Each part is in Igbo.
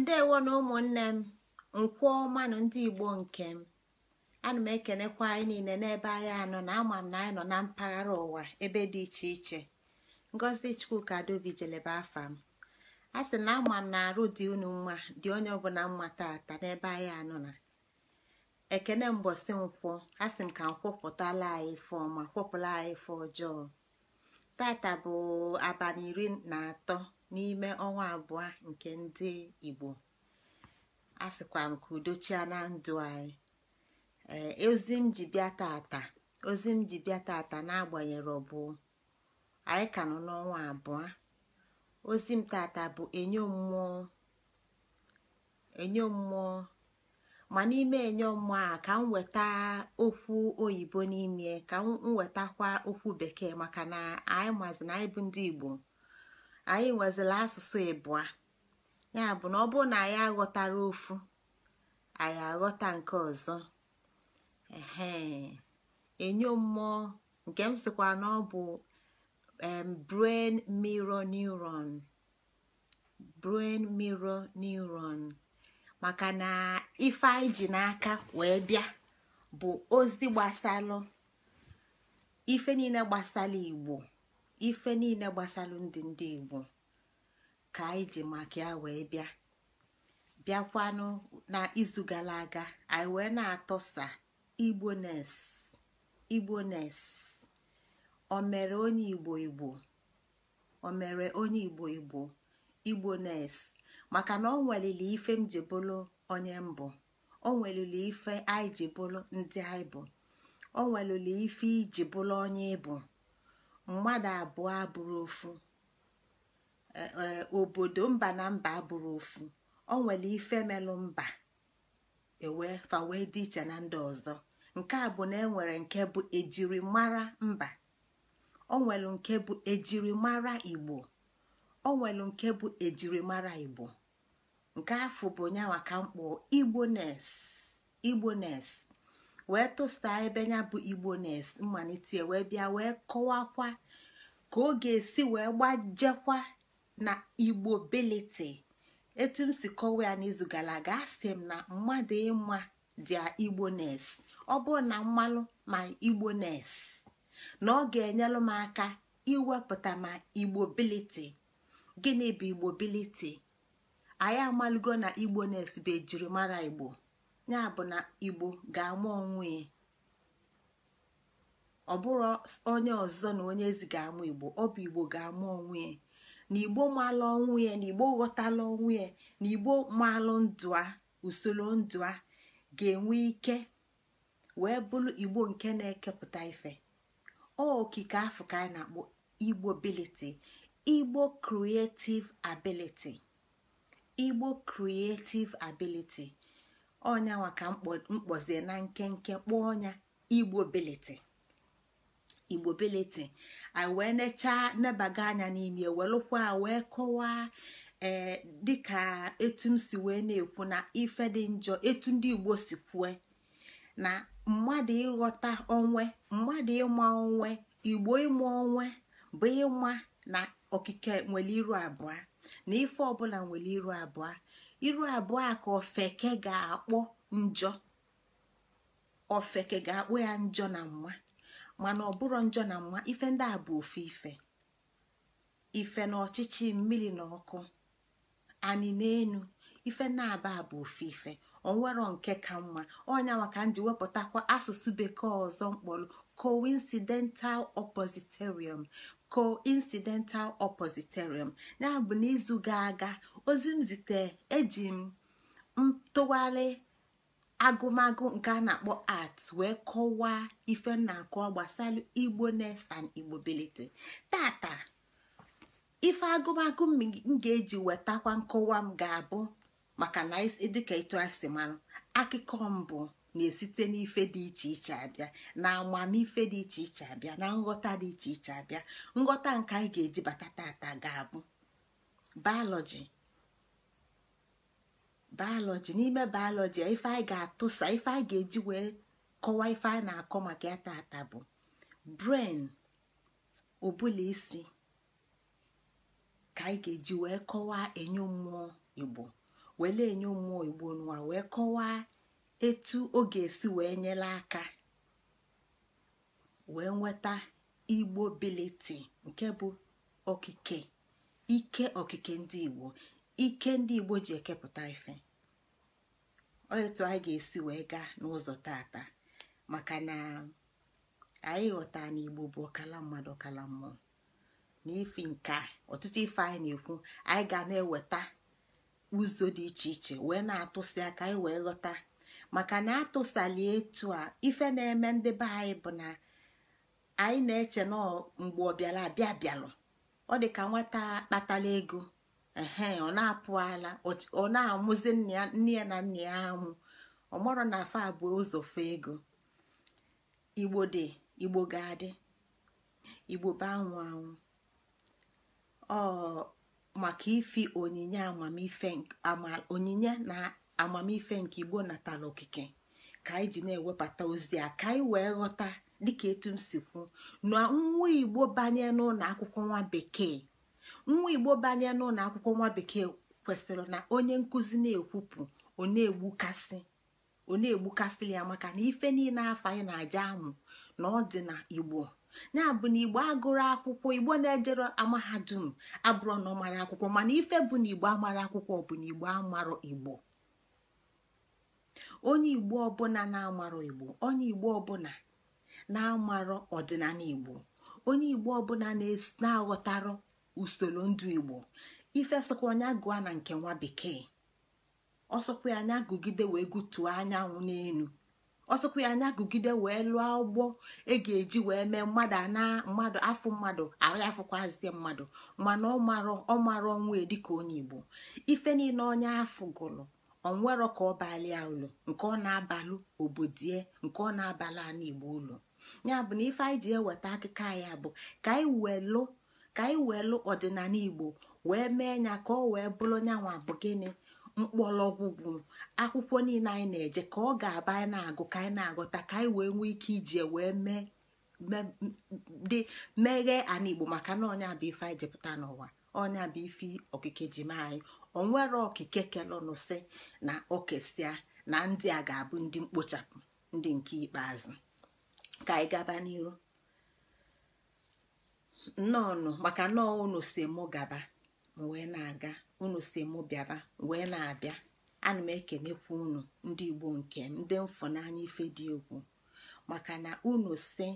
ndewo na ụmụnne m nkwụọ ọma na ndị igbo nke m ana m ekenekwa anyị niile n'ebe anyị anọ na ama m na anyị nọ na mpaghara ụwa ebe dị iche iche ngozi chukwuka adaobi jelebe afa m a sị na ama m na arụ dị unu mma dị onye ọbụla mma tata n'ebe anyị anọ na ekene mbọsị nkwọ a sị m ka m kwọpụtala anyị ife ọma kwọpụla anyị ife ọjọọ tata bụ abalị iri na atọ n'ime ọnwa abụọ nke ndị Igbo a sịkwa m ka udochia ndụ anyị eh, ozi m ji bịa tata ozi m ji bịa tata na ọ bụ anyị ka nọ n'ọnwa abụọ ozi m tata bụ enyo mmụọ enyo mmụọ ma n'ime enyo mmụọ a ka m weta okwu oyibo n'ime ka m wetakwa okwu bekee maka na anyị mazi na anyị bụ ndị Igbo anyị nwezila asụsụ ịbụa ya bụ na ọ bụrụ na anyị aghọtara ofu anyị aghọta nke ọzọ ehe enyo mmụọ nke m na ọ bụ brain mirror neuron brain mirror neuron maka na ife anyị ji n'aka wee bịa bụ ozi gbasalụ ife niile gbasara igbo ife niile gbasara ndị ndị igbo ka anyị ji maka ya wee bịa bịakwanụ na izu gara aga anyị wee na-atọsa igbones igbones o mere onye igbo igbo o onye igbo igbo igbones maka na ọ ife m ji bụrụ onye mbụ o ife anyị ji bụrụ ndị anyị bụ o nwelili ife iji bụrụ onye ịbụ mmadụ abụọ abụrụ ofu e, e, obodo mba na mba abụrụ ofu ọ nwere ife melụ mba ewe fa wee dị iche na ndị ọzọ nke a bụ na enwere nke bụ ejirimara mba ọ nwere nke bụ ejirimara igbo ọ nwere nke bụ ejirimara igbo nke afọ bụ nyanwa ka mkpọ igbones igbones wee tụsa ebe ya bụ igbo nes mmalite wee bịa wee kọwakwa ka ọ ga-esi wee gbajekwa na igbo beliti etu m si kọwa ya n'izu gara aga asị m na mmadụ ịma dị igbo nes ọ bụrụ na mmalụ ma igbo nes na ọ ga-enyelụ m aka iwepụta ma igbo biliti gịnị bụ igbo biliti anyị amalụgo na igbo nes bụ ejirimara igbo ya bụ na igbo ga-ama onwe ya ọ bụrụ onye ọzọ na onye ezi ga-amụ igbo ọ bụ igbo ga-amụ onwe ya na igbo maalụ ọnwụ ya na igbo ghọtala onwe ya na igbo maalụ ndụ a usoro ndụ a ga-enwe ike wee bụrụ igbo nke na-ekepụta ife okike afọ ka anyị na-akpọ igbo ability igbo creative ability igbo creative ability ọnyanwa ka mkpozie na nkenke kpọọ ọnya igbo beliti igbo beliti anyị wee nechaa nebaga anya n'ime welụkwa wee kọwaa ee dịka etu m si wee na-ekwu na ife dị njọ etu ndị igbo si kwue na mmadụ ịghọta onwe mmadụ ịma onwe igbo ịma onwe bụ ịma na okike nwere iru abụọ na ife ọbụla nwere iru abụọ iru abụọ a ka ofeke ga-akpọ njọ ofeke ga-akpọ ya njọ na mma mana ọ njọ na mma ife ndị a bụ ife ife na ọchịchị mmiri na ọkụ anị n'enu ife na-aba bụ ofe ife onwero nke ka mma ọnya ka m ji wepụtakwa asụsụ bekee ọzọ mkpọrọ coincidental oppositorium coincidental oppositorium ya bụ n'izu ga-aga ozi m zite eji m ntụgharị agụmagụ nke a na-akpọ art wee kọwaa ife m na-akọwa gbasara igbo nest and igbo belite tata ife agụmagụ m ga-eji wetakwa nkọwa m ga-abụ maka na dịka etu a si akụkọ mbụ na-esite n'ife dị iche iche abịa na amamife dị iche iche abịa na nghọta dị iche iche abịa nghọta nke anyị ga-eji bata tata ga-abụ biology bayọlọji n'ime bayọlọji ife anyị ga-atụsa ife anyị ga-eji wee kọwaa ife anyị na-akọ maka ya tata bụ bren ụbụla isi ka anyị ga-eji wee kọwaa enyo mmụọ igbo wele enyo mmụọ igbo n'ụwa wee kọwaa etu ọ ga-esi wee nyere aka wee nweta igbo biliti nke bụ okike ike okike ndị igbo ike ndị igbo ji ekepụta ife otu anyị ga-esi wee gaa n'ụzọ tata maka na anyị ghọta na igbo bụ ọkala mmadụ ọkala mmụọ na ifi nka ọtụtụ ife anyị na-ekwu anyị ga na-eweta ụzọ dị iche iche wee na-atụsi aka anyị wee ghọta maka na atụsali etu a ife na-eme ndị be anyị bụ na anyị na-eche na mgbe ọ bịara abịa bịalụ ọ dị ka nwata kpatala ego ehe ọ na ala ọ na-amụzi nne ya na nna ya amụ ọmọrọ na afọ abụọ ụzọ ego igbo dị igbo ga-adị igbo bụ anwụ anwụ ọ maka ifi onyinye amamife onyinye na amamife nke igbo natala okike ka anyị ji na-ewebata ozi a ka anyị wee ghọta dịka etu m si kwu na nwa igbo banye n'ụlọ akwụkwọ nwa bekee nwa igbo banye n'ụlọ akwụkwọ nwa bekee kwesịrị na onye nkụzi na-ekwupụ ọ na-egbukasị ọ na ya maka na ife niile afọ anyị na-aja amụ na ọ dị na igbo ya bụ na igbo agụrụ akwụkwọ igbo na-ejere amahadum abụrụ na ọ akwụkwọ mana ife bụ na igbo amara akwụkwọ bụ na igbo amarọ igbo onye igbo ọbụla na-amarọ igbo onye igbo ọbụla na-amarọ ọdịnala igbo onye igbo ọbụla na-aghọtarọ usoro ndụ igbo ife sokwa onye gụa na nke nwa bekee ọsọkwa anya gụgide wee gụtuo anyanwụ n'elu ọsọkwa anya gụgide wee lụọ ụgbọ e ga-eji wee mee mmadụ ana mmadụ afụ mmadụ ahụ afụkwazie mmadụ mana ọ mara ọnwa dịka onye igbo ife niile onye afụ gụrụ ọnwerọ ka ọ balịa ụlọ nke ọ na-abalụ obodie nke ọ na-abalị ana igbo ụlọ ya bụ na ife anyị ji eweta akụkọ anyị bụ ka anyị welụ ka anyị weelụ ọdịnala igbo wee mee ya ka ọ wee bụrụ nyanwa bụ gịnị mkpọrọgwụgwụ akwụkwọ niile anyị na-eje ka ọ ga-aba anyị na-agụ ka anyị na-agụta ka anyị wee nwee ike iji wee mee dị meghee ana igbo maka na ọnya bụ ife anyị jepụta n'ụwa ọnya bụ ife okike ji mee anyị onwere okike kelọnụsị na okesia na ndị a ga-abụ ndị mkpochapụ ndị nke ikpeazụ ka anyị gaba n'iru nnọọnụ maka nnọọ unu si mụ gaba wee na-aga unu si mụ bịaba wee na-abịa ana m ekenekwa unu ndị igbo nke m ndị mfụnanya ife dị egwu maka na unu si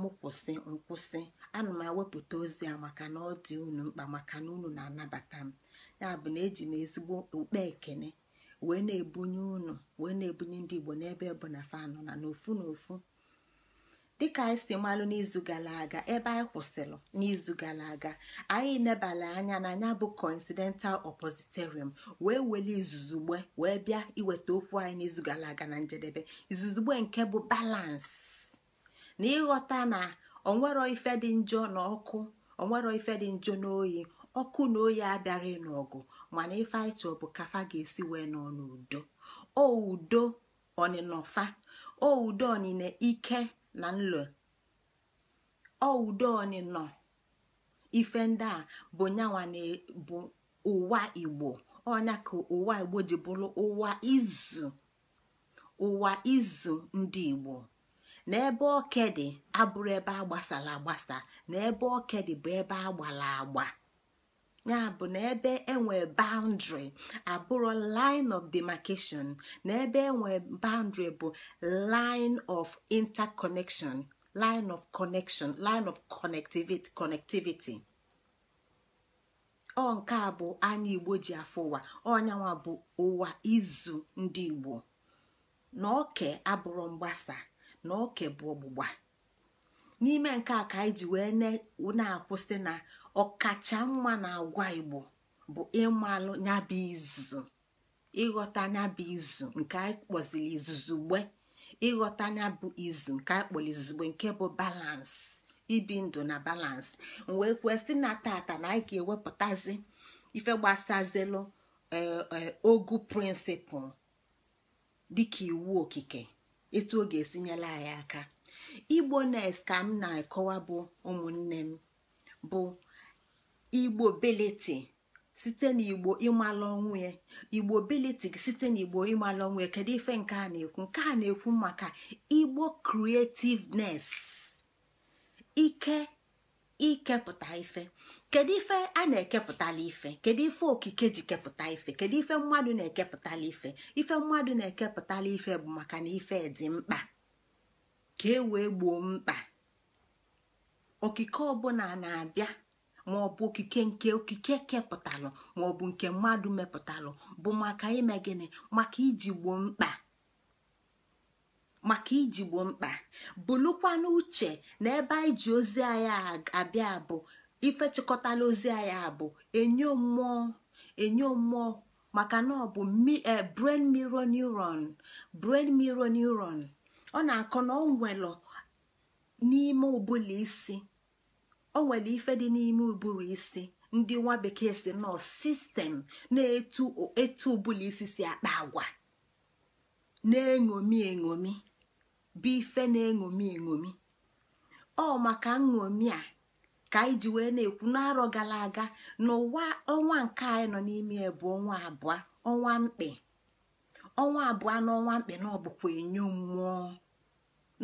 mụ kwụsị nkwụsị ana m ewepụta ozi a maka na ọ dị unu mkpa maka na unu na-anabata m ya bụ na eji m ezigbo okpe ekene wee na-ebunye unu wee na-ebunye ndị igbo n'ebe bụ na fanụ na n'ofu n'ofu dịka anyị si malụ n'izu gara aga ebe anyị kwụsịrị n'izu gara aga anyị nebala anya na anya bụ coincidental oppositorium wee weli izuzugbe wee bịa iweta okwu anyị n'izu gara aga na njedebe izuzugbe nke bụ balance na ịghọta na onwero ife dị njọ na ọkụ onwero ife dị njọ na oyi ọkụ na oyi abịara n'ọgụ mana ife anyị chọọ bụ kafa ga-esi wee nọ n'udo o udo oudo o ike na nlo e. ọudoni nọ ife ndị a bụ nyanwa e, bụ ụwa igbo ọnya ka ụwa igbo ji bụrụ ụwa izu ụwa izu ndị igbo na ebe okedị abụrụ ebe agbasara agbasa na ebe okedị bụ ebe agbara agba ya bụ na ebe enwe boundary abụrụ line of demarcation na ebe enwe boundary bụ line of interconnection line of connection line of connectivity connectivity ọ nke a bụ anya igbo ji afọ ụwa ọnyanwa bụ ụwa izu ndị igbo na oke abụrụ mgbasa na oke bụ ọgbụgba n'ime nke a ka anyị ji wee na-akwụsị na ọkacha mma na agwa igbo bụ ịmalụ nyabụ izu ịghọta nyabụ izu nke anyị kpọziri izuzugbe ịghọta nyabụ izu nke anyị kpọrọ izugbe nke bụ balansị ibi ndụ na balansị wee kwesị na tata na anyị ga-ewepụtazi ife gbasazilụ eh, eh, ogu prịnsịpụl dịka iwu okike etu ọ ga-esinyela anyị aka igbo nes ka m na-akọwa bụ ụmụnne m bụ igbo beleti site n'igbo ịmalụ ọnwụ igbo beleti site n'igbo ịmalụ ọnwụ kedu ife nke a na-ekwu nke a na-ekwu maka igbo creativeness ike ikepụta ife kedu ife a na-ekepụtala ife kedu ife okike ji kepụta ife kedu ife mmadụ na-ekepụtala ife ife mmadụ na-ekepụtala ife bụ maka na ife dị mkpa ka e wee gboo mkpa okike ọbụla na-abịa ma ọ bụ okike nke okike kepụtalụ ma ọ bụ nke mmadụ mepụtalụ bụ maka ime maka iji mkpa maka iji mkpa bụlụkwa n'uche na ebe anyị ji ozi anyị abịa bụ ife chịkọtala ozi anyị abụ enye mmụọ enyo mmụọ maka na ọ bụ e, brain mirror neuron brain mirror neuron ọ na-akọ na ọ nwelụ n'ime ụbụla isi o nwere ife dị n'ime ụbụrụ isi ndị nwa bekee si nọ sistem na-etu etu isi si akpa agwa na-eṅomi eṅomi bụ ife na-eṅomi eṅomi ọ maka nṅomi a ka anyị ji wee na-ekwu n'arọ gara aga n'ụwa ọnwa nke anyị nọ n'ime bụ ọnwa abụọ ọnwa mkpe ọnwa abụọ ọnwa mkpe na ọ bụkwa enyo mmụọ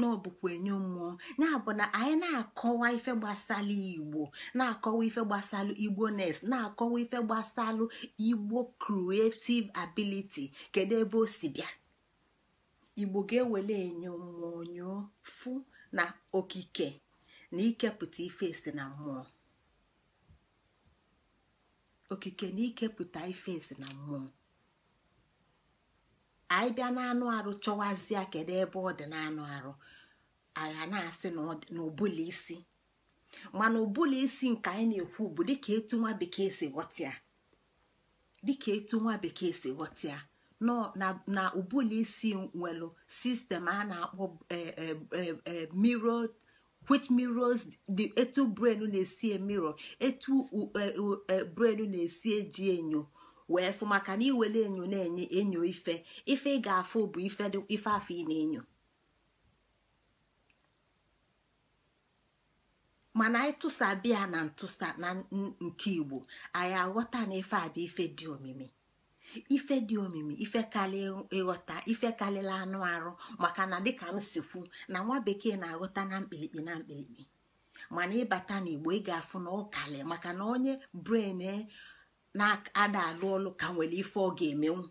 na ọ bụkwa enyo mmụọ ya bụ na anyị na-akọwa ife gbasalụ igbo na-akọwa ife gbasalụ igbo nes na-akọwa ife gbasalụ igbo creative ability kedu ebe o si bịa igbo ga-ewele enyo mmụọ nyoo fụ na okike na ikepụta ife esi na na ikepụta na mmụọ anyị bịa n'anụ arụ chọwazie kedu ebe ọ dị n'anụ arụ agha na-asị na isi mana ụbụla isi nke anyị na-ekwu bụ dịka etu nwa bekee si ghọtịa dịka etu nwa bekee si ghọtịa na ụbụla isi nwere sistem a na-akpọ e, e, e, mirror which mirrors the etu brain na-esi emirọ etu brain na-esi eji enyo wee fụ maka na iwere enyo na-enye enyo ife ife ị ga-afụ bụ ife afọ ị na-enyo mana anyị biya na ntụsa na nke igbo anyị aghọta na ife abịa ife dị omimi ife dị omimi ife karịa ịghọta ife anụ arụ maka na dịka m na nwa bekee na-aghọta na mkpirikpi na mkpirikpi mana ịbata n'igbo ị ga-afụ na ọ maka na onye bren e na-ada alụ ọlụ ka nwere ife ọ ga-emenwu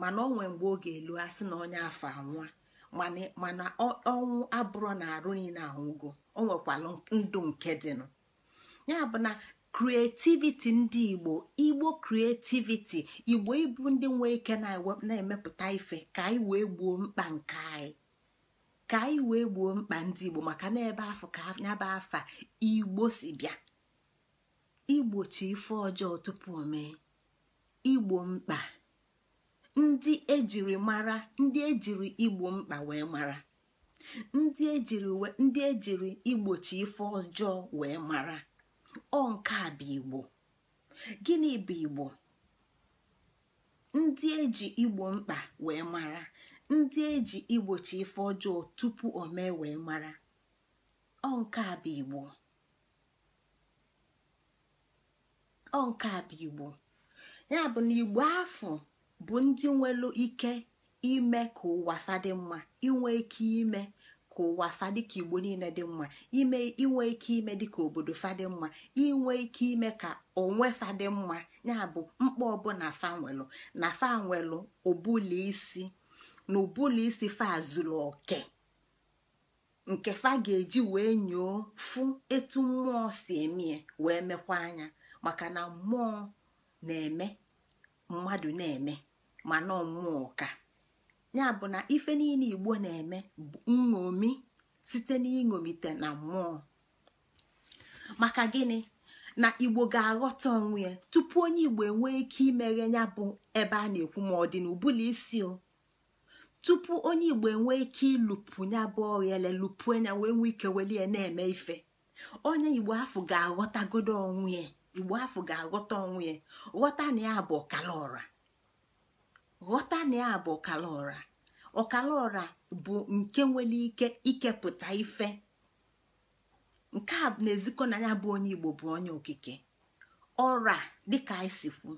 mana ọ nwee mgbe ọ ga-elu asị na onye afọ anwụa mana ọnwụ abụrụ na arụ niile anwụgo o nwekwalụ ndụ nke dịnụ ya bụ na kreativiti ndị igbo igbo kreativiti igbo ịbụ ndị nwee ike na-emepụta ife ka anyị wee gbuo mkpa nke anyị ka anyị wee gboo mkpa ndị igbo maka na ebe afọ ka bụ afa igbo si bịa igbochi ife ọjọọ tupu mee igbo mkpa ndị ejiri mara ndị ejiri igbo mkpa wee mara ndị ejiri ndị ejiri igbochi ife ọjọọ wee mara ọ nke a bụ igbo gịnị bụ igbo ndị eji igbo mkpa wee mara ndị eji igbochi ife ọjọọ tupu o mee wee mara ọ nke a bụ igbo ọ nke igbo ya bụ na igbo afọ bụ ndị nwere ike ime ka ụwa fadị mma inwe ike ime ka ụwa fa ka igbo niile dị mma ime inwe ike ime dị ka obodo fadị mma inwe ike ime ka onwe fadị mma ya bụ mkpa ọbụla fa na fa nwelụ isi na ụbụla isi fa azụlụ oke nke fa ga-eji wee nyoo fụ etu mmụọ si emie wee mekwa anya maka na mmụọ na-eme mmadụ na-eme ma nọ mmụọ ka ya bụ na ife niile igbo na-eme bụ nṅomi site n'iṅomite na mmụọ maka gịnị na igbo ga-aghọta onwe ya tupu onye igbo enwee ike imeghe ya bụ ebe a na-ekwu ma ọ dị n'ụbụla isi o tupu onye igbo enwee ike ịlụpụ nya bụ oghele lụpụ anya wee nwee ike welie na-eme ife onye igbo afọ ga-aghọtagodo onwe igbo afọ ga-aghọta onwe ya ghọta na ya bụ ọkala ghọta na ya bụ ọkala ọra ọkala bụ nke nwere ike ikepụta ife nke a na-ezikọ na ya bụ onye igbo bụ onye okike ọra dịka anyị si kwu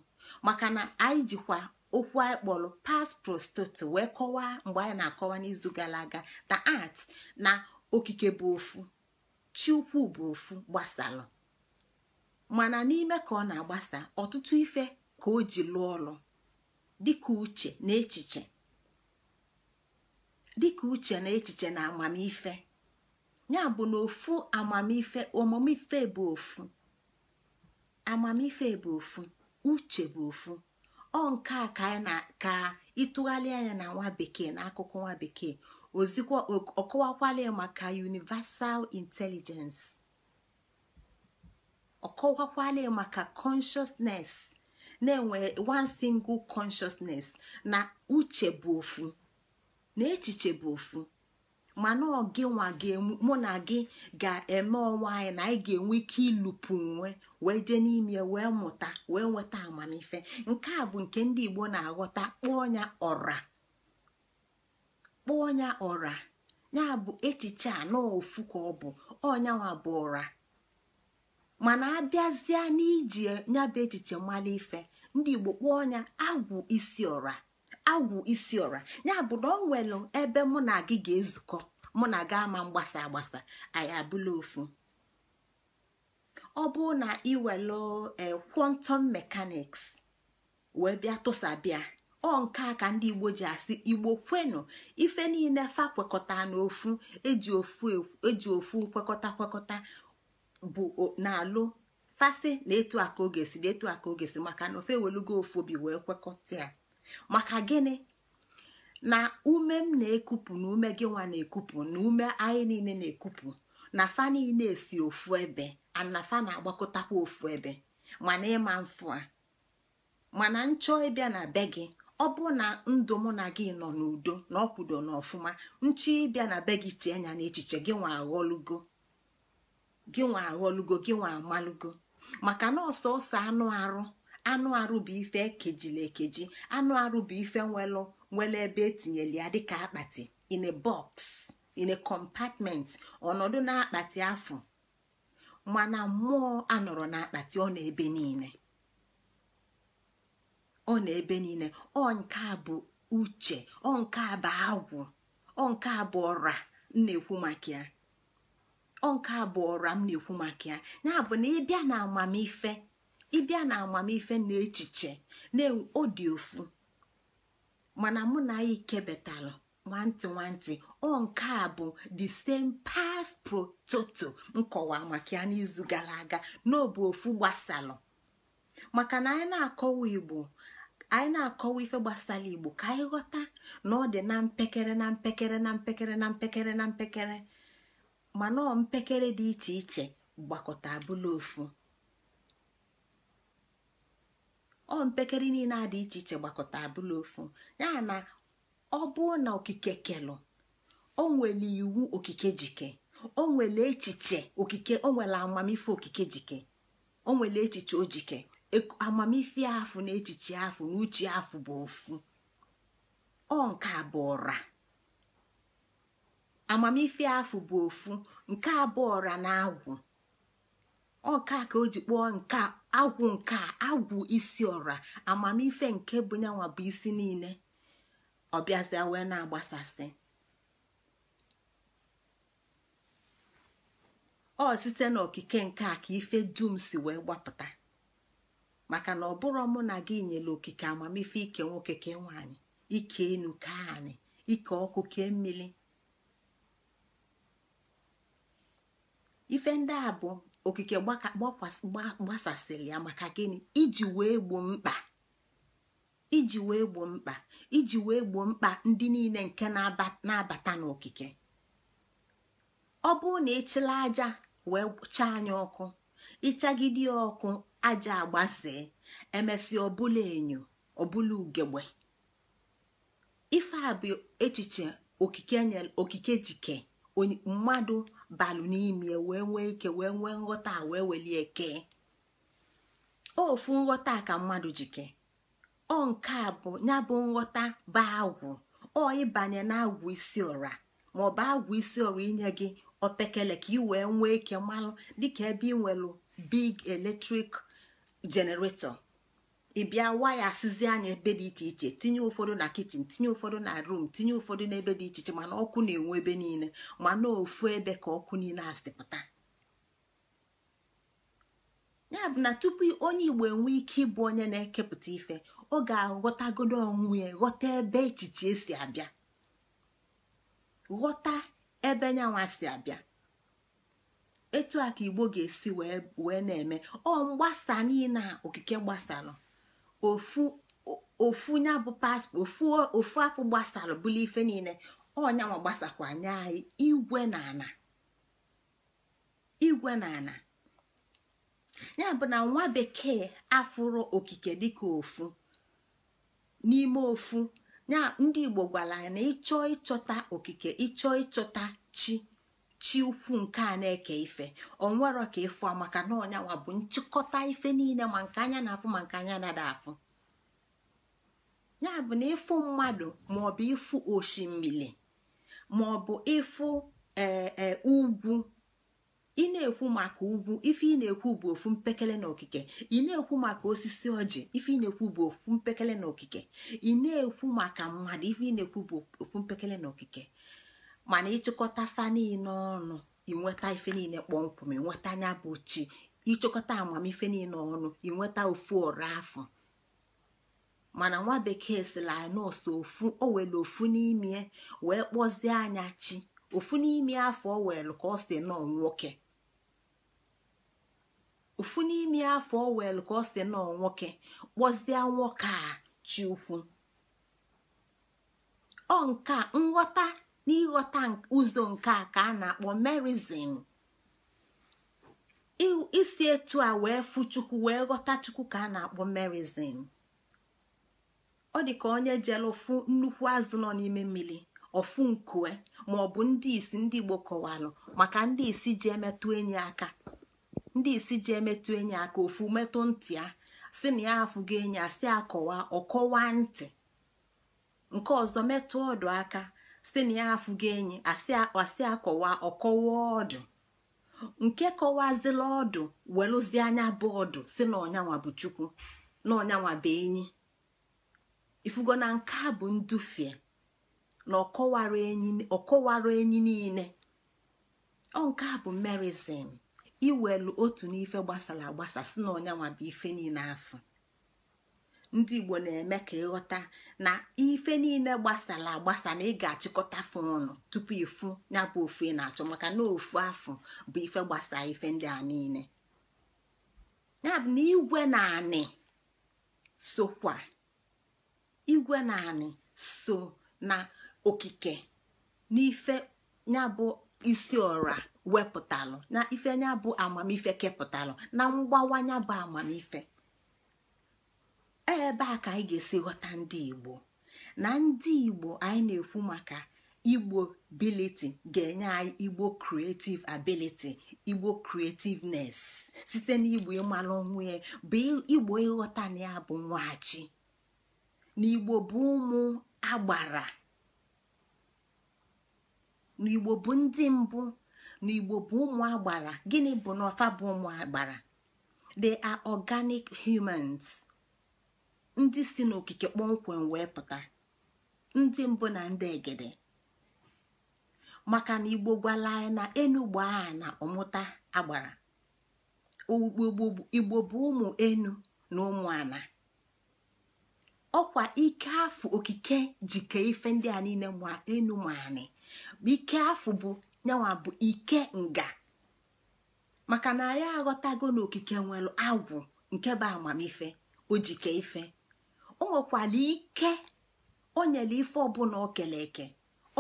maka na anyị jikwa okwu anyị kpọrọ past prostoto wee kọwaa mgbe anyị na-akọwa n'izu gara aga na art na okike bụ ofu chi bụ ofu gbasalụ mana n'ime ka ọ na-agbasa ọtụtụ ife ka o ji lụọ ọrụ dịka uche na echiche uche na echiche na amamife ya bụ na ofu amamife omamife bụ ofu amamife bụ ofu uche bụ ofu ọ nke a ka ịtụgharị anya na nwa bekee na akụkọ nwa bekee ozikwa ọkọwakwala maka universal intelligence ọkọwakwala maka consciousness na-enwe one single consciousness na uche bụ ofu na echiche bụ ofu mana ọ gị nwa gị mụ na gị ga-eme onwe anyị na anyị ga-enwe ike ilupu onwe wee jee n'ime wee mụta wee nweta amamife nke a bụ nke ndị Igbo na-aghọta kpọọ ya ọra kpọọ ya ọra ya bụ echiche a ofu ka ọ bụ ọnyanwa bụ ọra mana abịazie n'iji ya bụ echiche mmalị ife ndị Igbo kpọọ ya agwụ isi ọra agwụ isi ọra ya bụ na ọ nwere ebe mụ na gị ga-ezukọ mụ na gị ama mgbasa agbasa anyị abụla ofu ọ bụ na iwelu e, quantum mekaniks wee bịa tụsabịa ọ nke a ka ndị igbo ji asị igbo kwenu ife niile fa kwekọta n'ofu eji ofu e, eji ofu nkwekọta kwekọta bụ na-alụ fasị na etu a oge si na etu aka oge si maka na ofe ewelugo ofu obi wee kwekọta ya maka gịnị na ume m na ekupu na ume gị nwa na ekupu na ume anyị niile na ekupu na fa niile esi ofu ebe anafa na-agbakọtakwa ofu ebe mana ịma mfụ a mana nchọ ịbịa na be gị ọ bụrụ na ndụ mụ na gị nọ n'udo na ọkwudo na ọfụma nchọ ịbịa na be gị tie anya n'echiche gị nwa aghọlugo gị nwa aghọlugo gị nwa amalugo maka na ọsọ ọsọ anụ arụ anụ arụ bụ ife ekejila ekeji anụ arụ bụ ife nwelụ nwere ebe etinyela ya dịka akpati in a box in a compartment ọnọdụ na akpati afọ mana mmụọ anọrọ n'akpati ọ na ebe niile ọ na ebe niile ọ nke a bụ uche ọ nke a bụ agwụ ọ nke a bụ ọra m na-ekwu maka ya ọ nke a bụ ọra m na-ekwu maka ya ya bụ na ịbịa na amamife ịbịa na amamife na echiche na ọ dị ofu mana mụ na ike ikebetalụ nwantị nwantị ọ nke a bụ the same past prototo nkọwa maka ya n'izu gara aga n'obu ofu gbasalụ maka na anyị na-akọwa igbo anyị na-akọwa ife gbasara igbo ka anyị ghọta na ọ dị na mpekere na mpekere na mpekere na mpekere na mpekere mana ọ mpekere dị iche iche gbakọta abụla ofu ọ mpekere niile a dị iche iche gbakọta abụla ofu ya na ọ bụrụ na okike kelụ o nwere iwu okike jike o nwere echiche okike o nwere amamife okike jike o nwere echiche ojike amamife afụ na echiche afụ na uche afụ bụ ofu ọ nke bụ ọra amamife afụ bụ ofu nke abụọ bụ ọra na agwụ ọka ka o ji kpọọ nke agwụ nke agwụ isi ọra amamife nke bụ nyanwa bụ isi niile ọ bịazịa wee na-agbasasị ọ site n'okike nke a ka ife dum si wee gbapụta maka na ọ bụrụ mụ na gị nyere okike amamife ike nwoke ke nwaanyị ike enu ka anyị ike ọkụ ke mmiri ife ndị a bụ okike gbasasịrị ya maka gịnị iji wee gbo mkpa iji wee gbu mkpa iji wee gboo mkpa ndị niile nke na-abata n'okike ọ bụrụ na ịchịla aja wee chaa anya ọkụ ịchagide ọkụ aja agbasee emesịa ọbụla enyo ọbụla ugegbe ife a bụ echiche okike jike mmadụ balụ n'ime wee nwee ike wee nwee nghọta wee welie eke ofu nghọta ka mmadụ jike ọ nke a bụ ya bụ nghọta ba agwụ ọ ịbanye na agwụ isi ọra maọbụ agwụ isi ọra inye gị opekele ka ị wee nwee ike mmanụ dịka ebe ị nwelụ big eletrik generator ịbịa waya sizi anya ebe dị iche iche tinye ụfọdụ na kichin tinye ụfọdụ na rum tinye ụfọdụ n'ebe dị iche iche mana ọkụ na-enwe ebe niile mana ofu ebe ka ọkụ niile asịpụta ya bụ na tupu onye igbo enwee ike ịbụ onye na-ekepụta ife ọ ga-aghọtagodo onwe ya ghọta ebe echiche si abịa ghọta ebe nyanwa si abịa etu a ka igbo ga-esi wee na-eme ọ mgbasa niile okike gbasalụ ofu ofu nya bụ paspọtụ ofu ofu afọ gbasalụ bụla ife niile ọ gbasakwa nye anyị igwe na ana igwe na ana ya bụ na nwa bekee afụrụ okike dịka ofu n'ime ofu ya ndị igbo gwara ya na ịchọ ịchọta okike ịchọ ịchọta chi chi ukwu nke a na-eke ife onwero ka ịfụ maka na ọnyanwa bụ nchịkọta ife niile ma nke anya na-afụ ma nke anya na-ada afụ ya bụ na ịfụ mmadụ maọbụ ịfụ osimiri maọbụ ịfụ ee eh, eh, ugwu ị na-ekwu maka ugwu ife ị na-ekwu bụ ofu mpekele na okike ị na-ekwu maka osisi ọjị ife ị na-ekwu bụ ofu mpekele na okike ị na-ekwu maka mmadụ ife ị na-ekwu bụ ofu mpekele na okike mana ịchịkọta fa niile ọnụ inweta ife niile kpọmkwem ịnweta anya bụ chi ịchịkọta amamife niile ọnụ inweta ofu ọrụ afọ mana nwa bekee sila nọọsụ ofu o were ofu n'ime wee kpọzie anya chi ofu n'ime afọ o were ka ọ si nọọ nwoke ofu n'ime afọ owelu ka ọ si nọ nwoke kpọzie nwoke a chi ukwu ọ nke nghọta na ịghọta ụzọ nke a ka a na-akpọ isi etu a wee fu chukwu wee ghọta chukwu ka a na-akpọ merizin ọ dị ka onye jere ụfụ nnukwu azụ nọ n'ime mmiri ọfụ nkue ma ọ bụ ndị isi ndị igbo kọwalụ maka ndị isi ji emetụ enyi aka ndị isi ji emetụ enyi aka ofu metụ ntị ya si na ya afụgo enyi a si akọwa ọkọwa ntị nke ọzọ metụ ọdụ aka si na ya afụgo enyi asị akọwa ọkọwa ọdụ nke kọwazila ọdụ welụzie anya bụ ọdụ si na ọnyanwa bụ chukwu na ọnyanwa bụ enyi ifugo na nke a bụ ndufie na ọkọwara enyi niile ọ nke a bụ merizin iwelu otu n'ife gbasara agbasa si na ọnyanwa bụ ife niile afọ ndị igbo na-eme ka ịghọta na ife niile gbasara agbasa na ị ga-achịkọta fụ ọnụ tupu ịfụ ya bụ ofu ị na-achọ maka na ofu afọ bụ ife gbasara ife ndị a niile yabụ na igwe na sokwa igwe na so na okike n'ife ya bụ isi ọra wepụtalụ na ife ya bụ amamife kepụtalụ na mgbawanya bụ amamife ebe a ka anyị ga-esi ghọta ndị igbo na ndị igbo anyị na-ekwu maka igbo ability ga-enye anyị igbo creative ability igbo creativeness site n'igbo ịmalụ onwe ya bụ igbo ịghọta na ya bụ nwachi na igbo bụ ụmụ agbara na igbo bụ ndị mbụ na igbo bụ ụmụ agbara gịnị bụ na bụ ụmụ agbara they are organic humans ndị si n'okike kpọmkwem wee pụta ndị mbụ na ndị egede maka na igbo gwala anyị na enugbo a na ọmụta agbara igbo bụ ụmụ enu na ụmụ ana ọkwa ike afụ okike jike ife ndị a niile ma enu ma anị ike nyanwa bụ ike nga maka na anyị aghọtago n'okike nwere agwụ nke bụ amamife ojike ife o nwekwara ike o nyere ife ọbụla o eke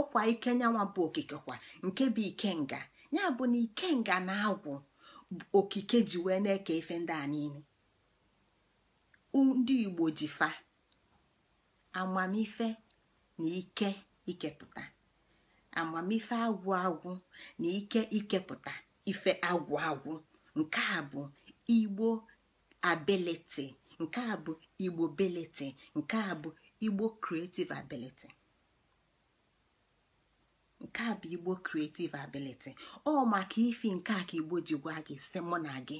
ọkwa ike nyanwa bụ okike kwa nke bụ ike nga ya bụ na ike nga na agwụ okike ji wee na-eke ife ndị a niile ndị igbo ji fa amamife na ike ikepụta amamife agwụ agwụ na ike ikepụta ife agwụ agwụ nke a bụ igbo ability nke a bụ igbo ability nke a bụ igbo creative ability nke a bụ igbo creative ability ọ maka ifi nke a ka igbo ji gwa gị si mụ na gị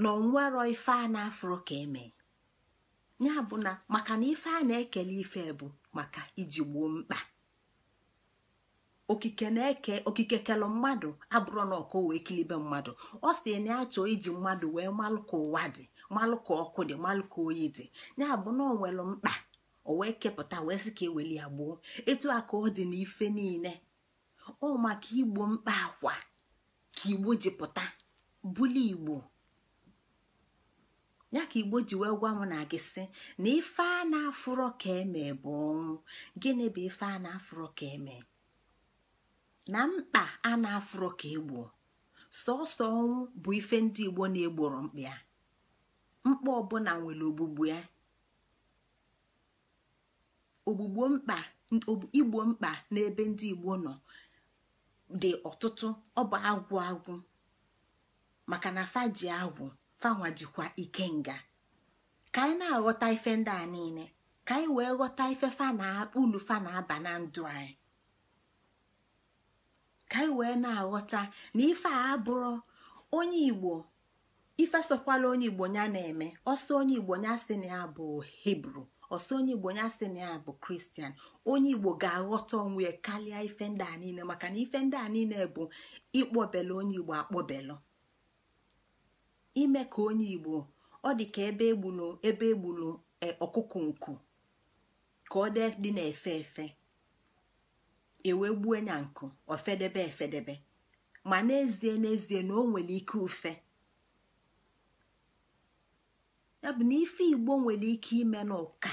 na onwero ife a na-afro ka eme ya bụ na maka na ife a na-ekele ife bụ maka iji gboo mkpa okike na-eke okike kelụ mmadụ abụrụ na ọkụ wee kilibe mmadụ ọ si na achọ iji mmadụ wee malụ ka ụwa dị malụka ka ọkụ dị malụka ka oyi dị ya bụ na ọ mkpa o wee kepụta wee sị ka eweli ya gboo etu a ka ọ dị n'ife niile ọ maka igbo mkpa akwa ka igbo ji pụta buli igbo ya ka igbo ji wee gwa m na gị sị na ife a na-afụrọ ka eme bụ ọnwụ gịnị bụ ife a na-afụrọ ka eme na mkpa a na-afụrọ ka egbu sọsọ ọnwụ bụ ife ndị igbo na-egboro mkpa ya mkpa ọbụla nwere ogbugbu ya ogbugbo mkpa igbo mkpa n'ebe ndị igbo nọ dị ọtụtụ ọ bụ agwụ agwụ maka na fa ji agwụ fanwa jikwa ikenga ka anyị na-aghọta ife ndị a niile ka anyị wee ghọta ife fa na ulu fa aba na ndụ anyị ka anyị e wee na-aghọta na ife a abụrụ onye igbo ife sokwala onye igbo ya na-eme ọsọ onye igbo ya sị na ya bụ hibru ọsọ onye igbo ya sị na ya bụ kristian onye igbo ga-aghọta onwe ya karịa ife ndị a niile maka na ife ndị a niile bụ ịkpọbelu onye igbo akpọbelu ime ka onye igbo ọ dị ka ebe egbulu ebe egbulu e, ọkụkụ nku ka ọ dị dị na-efe efe ewe gbuo nya nkụ ofedebe efedebe ma n'ezie n'ezie na o nwere ike ufe ya bụ na ife igbo nwere ike ime n'ụka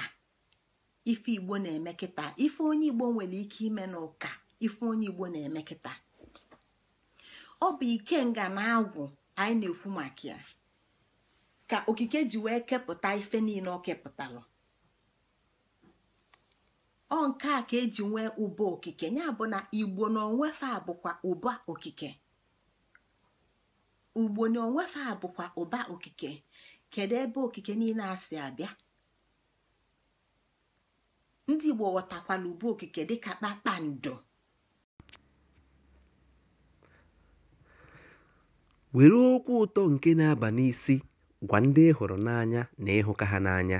ife igbo na emekita kịta ife onye igbo nwere ike ime n'ụka ife onye igbo na-eme ọ bụ ikenga na agwụ anyị na-ekwu maka ya ka okike ji wee kepụta ife niile ọ kepụtalụ ọ nke a ka eji nwee ụba okike ya bụ na igbo na onwefe a bụkwa ụba okike ugbo na onwefe bụkwa ụba okike kedu ebe okike niile a si abịa ndị igbo ghọtakwala ụba okike dị dịka kpakpando were okwu ụtọ nke na-aba n'isi gwa ndị ị hụrụ n'anya na ịhụka ha n'anya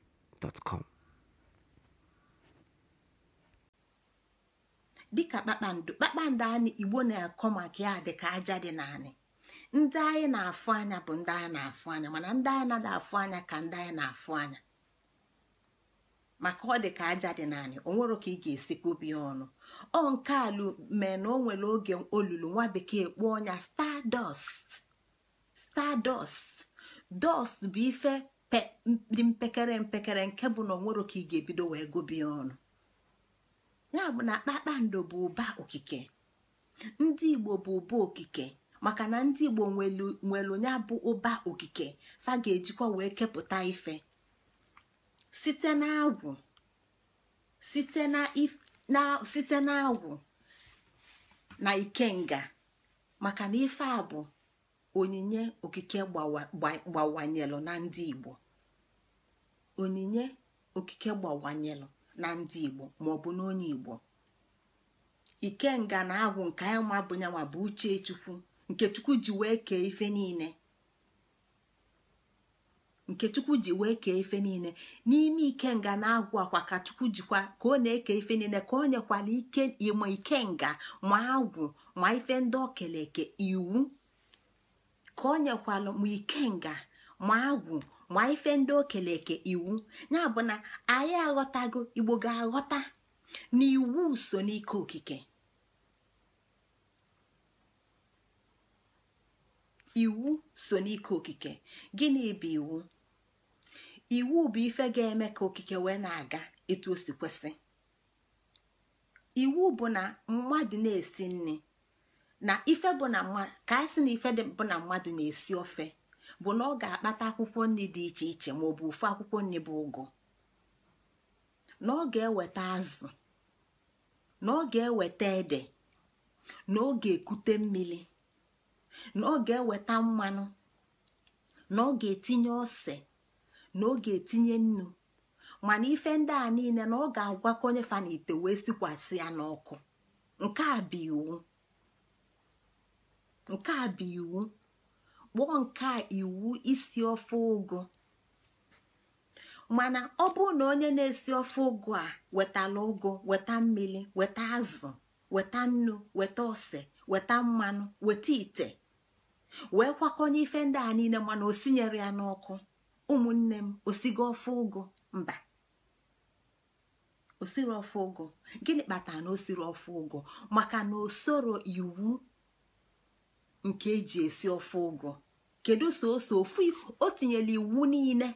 dịka kpakpando kpakpando anyị igbo na-akọ maka ya dịka aja dị naanị ndị anyị na-afụ anya bụ ndị anyị na-afụ anya mana ndị anyị na adị afụ anya ka ndị anyị na-afụ anya maka ọ dị ka aja dị naanị o nwere ka ị ga-esi kpobi ọnụ ọ nke alụ mee na o nwere oge olulu nwa bekee kpụọ ọnya stardust stardust dust bụ ife dị mpekere mpekere nke bụ na onwero ka ị ga-ebido wee gụbie ọnụ ya bụ na kpakpando bụ ụba okike ndị igbo bụ ụba okike maka na ndị igbo nwelu ya bụ ụba okike fa ga-ejikwa wee kepụta ife site na agwụ site na na na ikenga maka na ife a bụ onyinye okike gbawanyelụ na ndị igbo onyinye okike gbawanyelụ na ndị igbo maọbụ n'onye igbo ike nga na agwụ nke anyị ma bụ nyanwa bụ uche chukwu nke chukwu ji wee kee ife niile nke chukwu ji wee kee ife n'ime ikenga na-agwụ akwa ka chukwu jikwa ka ọ na-eke ife niile ka o nyekwala ike nga ma agwụ ma ife ndị okeleke iwu ka o nyekwala ma ikenga ma agwụ ma ife ndị okele eke iwu ya bụ na anyị aghọtago igbo ga-aghọta na iwu so n'ike okike iwu so n'ike okike gịnị bụ iwu iwu bụ ife ga-eme ka okike wee na-aga etu o si kwesị iwu bụ na mmadụ na-esi nri na ife bụ na ka anyị sị na ife bụ na mmadụ na-esi ofe bụ na ọ ga-akpata akwụkwọ nri dị iche iche maọbụ ofu akwụkwọ nri bụ ụgụ na ọ ga-eweta azụ na ọ ga-eweta ede na ọ ga-ekute mmiri na ọ ga-eweta mmanụ na ọ ga-etinye ose na ọ ga-etinye nnu mana ife ndị a niile na ọ ga-agwakọnye fa na ite wee sikwasị ya n'ọkụ nke a bụ iwu nke a bụ iwu kpụọ nke iwu isi ofe ụgụ mana ọ bụrụ na onye na-esi ofe ụgụ a wetala ụgụ weta mmiri weta azụ weta nnu weta ose weta mmanụ weta ite wee kwakọnye ife ndị a niile mana o sinyere ya n'ọkụ ụmụnne m osigo ofe ụgụ mba osiri ofe ụgụ gịnị kpatara na o siri ofe ụgụ maka na o iwu nke eji esi ofe ụgụ kedu soso ofu o tinyela iwu niile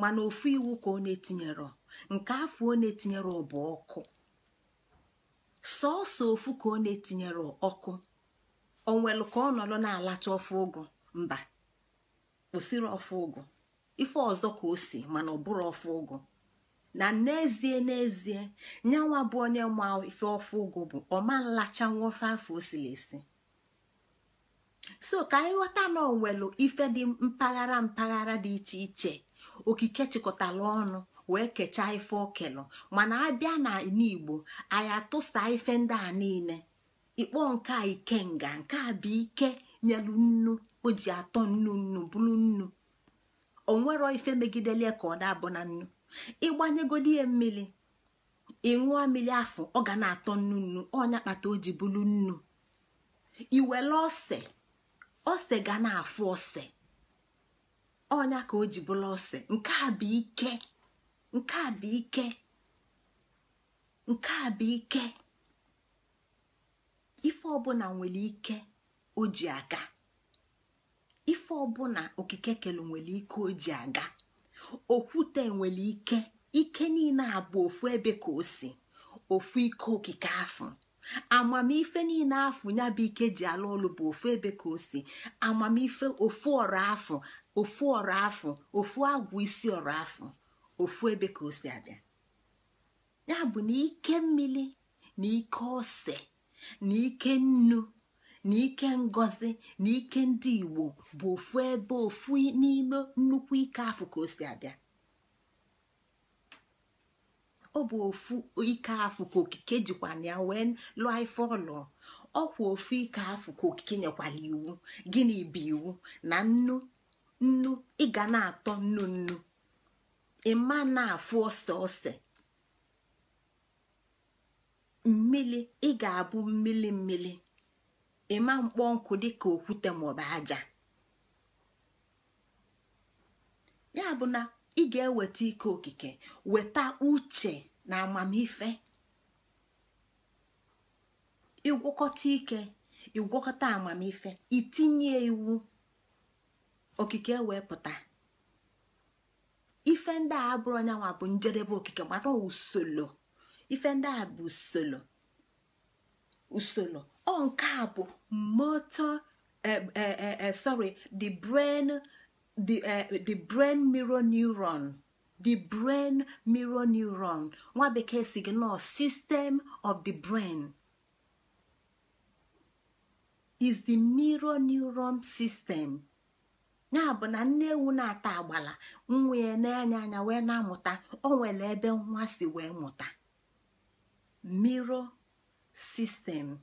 mana ofu iwu ka ọ na etinyere nke afọ ọ na-etinyere bụ ọkụ sọọsọ ofu ka ọ na-etinyere ọkụ onwelu ka ọ nọrọ na-alacha ofe ụgụ mba kwụsịrị ofe ụgụ ife ọzọ ka o si mana ọ bụrụ ofe ụgụ na n'ezie n'ezie nyanwa bụ onye ma ife ofe ụgụ bụ ọma nlachanwa ofe afọ o siri esi so ka anyị ghọta na onwelu ife dị mpaghara mpaghara dị iche iche okike chịkọtara ọnụ wee kechaa ife okelu mana abịa na n'igbo anyị atụsa ife ndị a niile ikpọ nke a ikenga nke a bụ ike nyelu nnu o ji atọ nnu nnu bụrụ nnu onwero ife megidelie ka ọ dabụ na nnu ịgbanyegodi ya mmiri ịṅụọ mmiri afọ ọ ga na-atọ nnu nnu ọnya kpata o ji bụrụ nnu iwere ose ose ga na-afụ ose ọnya ka o ji bụrụ ose nke a bụ ike nke a bụ ike nke a bụ ike ife ọbụla nwere ike o ji aga ife ọbụla okike kelu nwere ike o ji aga okwute nwere ike ike niile abụ ofu ebe ka o si ofu ike okike afọ amamife niile afụ ya bụ ike ji alụ ọlụ bụ ofu ebe ka o si amamife ofu ọrụ afụ ofu ọrụ afụ ofu agwụ isi ọrụ afụ ofu ebe ka o si abịa ya bụ na ike mmiri na ike ose na ike nnu na ike ngozi na ike ndị igbo bụ ofu ebe ofu n'ime nnukwu ike afụ ka o si abịa ọ bụ ofu ike afụ ka okike jikwa na ya wee lụọ ife ọlụ ọkwa ofu ike afụ ka okike nyekwala iwu gịnị bụ iwu na nnu nnu ị ga na-atọ nnu nnu ịma na-afụ ose ose mmili ị ga-abụ mmili mmili ịma mkpọ nkụ dịka okwute maọbụ aja ya bụ na ị ga-eweta ike okike weta uche na amamife ịgwọkọta ike ịgwọkọta amamife itinye iwu okike wepụta ife ndị a bụrụ anyanwụ bụ njedebe okike mana usoro ife ndị a bụ usoro usoro ọ nke a bụ motor eh, eh, eh, sorry the brain the uh, the brain mirror neuron the brain mirror neuron nwa bekee si system of the brain is the mirror neuron system ya bụ na nne ewu na-ata agbala nwa ya na-anya anya wee na-amụta o nwere ebe nwa si wee mụta mirror system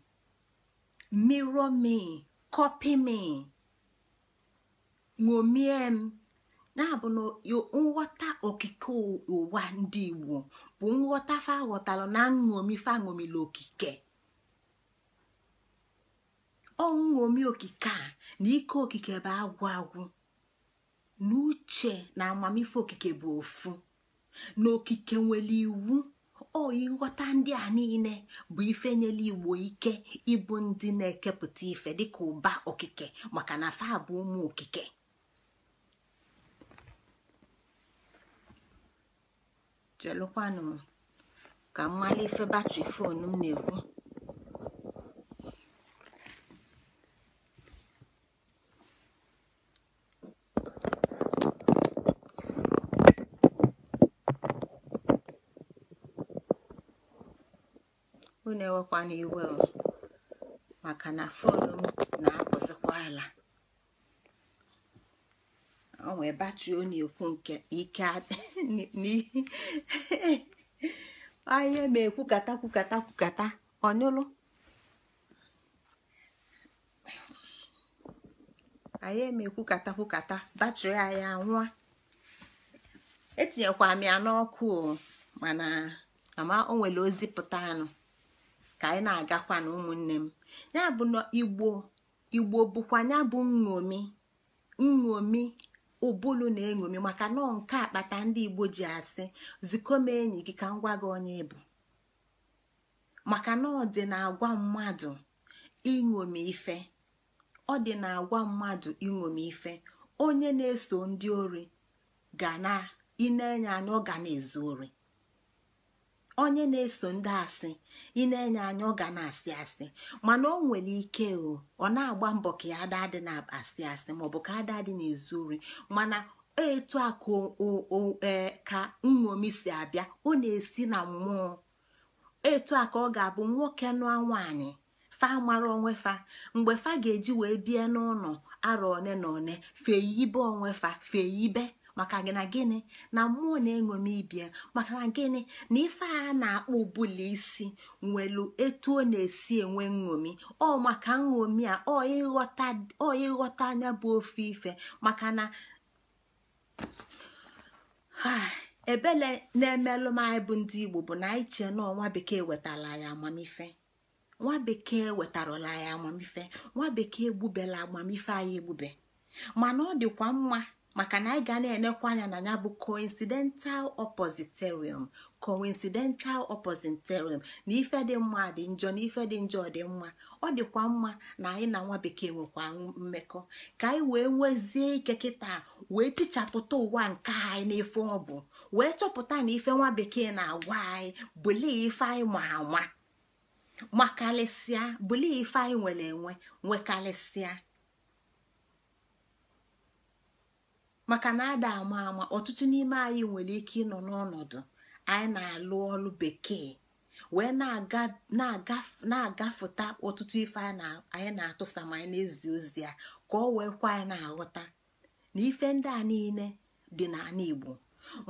mirror me copy me ṅomie m na-abụ na nghọta okike ụwa ndị igbo bụ nghọta fa ghọtalụ na nṅomi fa ṅomila okike ọṅomi okike a na ike okike bụ agwụ agwụ na uche na amamife okike bụ ofu na okike nwere iwu ọ ndị a niile bụ ife nyere igbo ike ịbụ ndị na-ekepụta ife dịka ụba okike maka na fa bụ ụmụ okike jelụkwanụ m ka m ife e batrị e foonu m na-ekwu unu ewekwana iwe maka na foonu m na-apụzikwa ala onwe batri ọ na-ekwu nke ike anya ma ekwukata kwukata kwukata ọnyụlụ anyị eme ekwukata kwukata batri anyị anwụa etinyekwa m ya n'ọkụ mana ama o nwere ozi pụta anụ ka anyị na-agakwa na ụmụnne m ya bụ na igbo igbo bụkwa ya bụ nṅomi nṅomi ụbụlụ na-eṅomi maka nọọ nke akpata ndị igbo ji asị zikọ m enyi gị ka m gị onye bụ maka na ọ dị na-agwa mmadụ iṅomi ife onye na-eso ndị ori ga na na anya anya ọ ga na-ezu ori onye na-eso ndị asị ị na-enye anya ọ ga na-asị asị mana o nwere ike o ọ na-agba mbọ ka ya ada na-asị asị maọbụ ka ada adị na-ezu ori mana etu a ka e, nṅomi si abịa ọ na-esi na mmụọ etu a ka ọ ga-abụ nwoke nụa nwaanyị fa mara onwe fa mgbe fa ga-eji wee bie n'ụlọ arọ one na one fee ibe onwe fa fee ibe maka na gịnị na mmụọ na-eṅomi ibia maka na gịnị na ife a na-akpọ ụbụla isi nwelu etu ọ na-esi enwe nṅomi ọ maka nṅomi a ọ ịghọta anya bụ ofe ife maka na ah, ebele na-emelụ m anyị bụ ndị igbo bụ na anyị chee na nwa bekee wetara ya amamife nwa bekee wetarala ya amamife nwa bekee egbubela amamife anyị egbube mana ọ dịkwa mma maka na anyị ga na-enekwa anya na ya bụ coincidental oppositerium coincidental oppositerium na ife dị mma dị njọ na ife dị njọ dị mma ọ dịkwa mma na anyị na nwa bekee nwekwa mmekọ ka anyị wee nwezie ike kịta wee tichapụta ụwa nke anyị n'ife ọ bụ wee chọpụta na ife nwa bekee na-agwa anyị bụli ife anyị ma ama makarịsịa bụli ife anyị nwere enwe nwekarịsịa maka na ada ama ama ọtụtụ n'ime anyị nwere ike ịnọ n'ọnọdụ anyị na-alụ ọrụ bekee wee na-agafụta ọtụtụ ife anyị na-atụsa ma anyị na-ezi ozi ya ka ọ wee kwa anyị na-aghọta na ife ndị a niile dị n'ala Igbo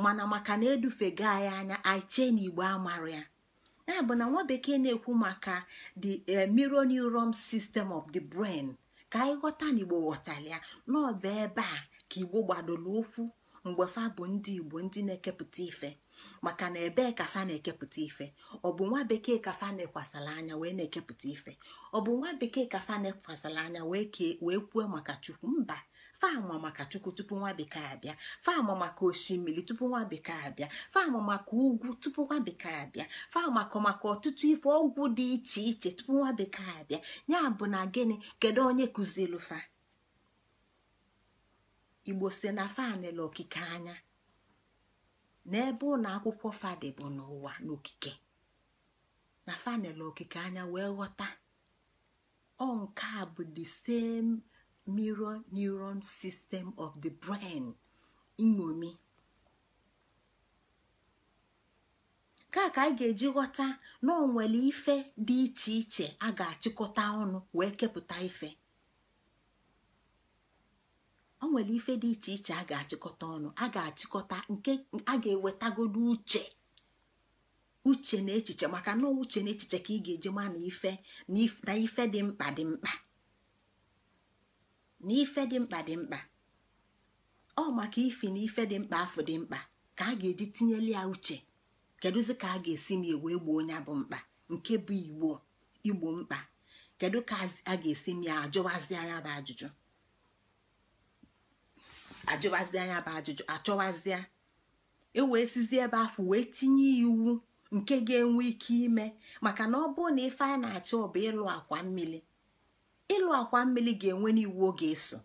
mana maka na edufega anyị anya anyị chee na Igbo amara ya ya bụ na nwa bekee na-ekwu maka the eh, mirror neuron system of the brain ka anyị ghọta na Igbo ghọtara ya n'ọba ebe a ka igbo gbadoro ụkwụ mgbe fa bụ ndị igbo ndị na-ekepụta ife maka na ebee ka fa na-ekepụta ife ọ bụ nwa bekee ka fa na-ekwasara anya wee na-ekepụta ife ọ bụ nwa bekee ka fa na-ekwasara anya wee kwuo maka chukwu mba faama maka chukwu tupu nwa bekee abịa faama maka osimiri tupu nwa bekee abịa faama maka ugwu tupu nwa bekee abịa faama maka ọtụtụ ife ọgwụ dị iche iche tupu nwa bekee abịa ya bụ na gịnị kedu onye kụziri igbo si na fanel okike anya n'ebe ụlọ akwụkwọ fadị bụ n'ụwa n'okike na fanele okike anya wee ghọta ọ nke a bụ the same mirror neuron system of the brain iṅomi. ka ka anyị ga-eji ghọta na ọ nwere ife dị iche iche a ga-achịkọta ọnụ wee kepụta ife o nwere ife dị iche iche a ga-achịkọta ọnụ a ga-achịkọta nke a ga-ewetagodu uche uche na echiche maka na uche na echiche ka ị ga-eji ma na ife na ife dị mkpa dị mkpa na ife dị mkpa dị mkpa ọ maka ifi na ife dị mkpa afọ dị mkpa ka a ga-eji tinyeli ya uche kedụzi ka a ga-esi m ewee gboo onye bụ mkpa nke bụ igbo igbo mkpa kedu ka a ga-esi m ya ajụwazi anya bụ ajụjụ ajụbazi anya bụ ajụjụ achọwazịa e wee sizie ebe afọ wee tinye iwu nke ga-enwe ike ime maka na ọ bụrụ na ife a na-achọ bụ ịlụ akwa mmiri ịlụ akwa mmiri ga-enwe n'iwu ọ ga-eso